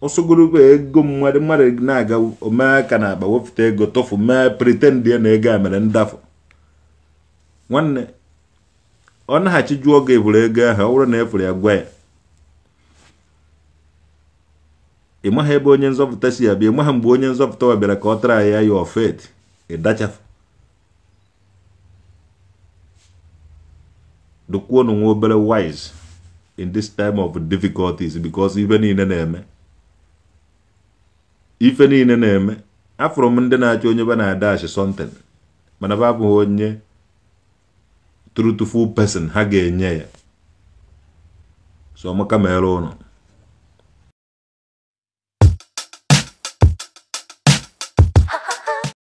osogologo ego mmadụ mmadụ na-aga omee aka na akpa wepụta ego tọfụ mee pritend ya na ego a mere ndafụ nwanne ọ naghachi jụọ oge eburu ego ahụ ọ bụrụ na efuru ya gwa ya ị maghị ebe onye nzọpụta si abịa ị maghị mgbe onye nzọpụta wa bịara ka ọ tara ya ya ofet ịdachafụ dokwuo nwa obere wise in this time of difficulties because ibe niile na-eme ife niile na-eme afụrụ m ndị na-achọ onye be na-ada achi sọnten mana ba abụghị onye trutiful pesin ha ga-enye ya so ọmaka mere ụnụ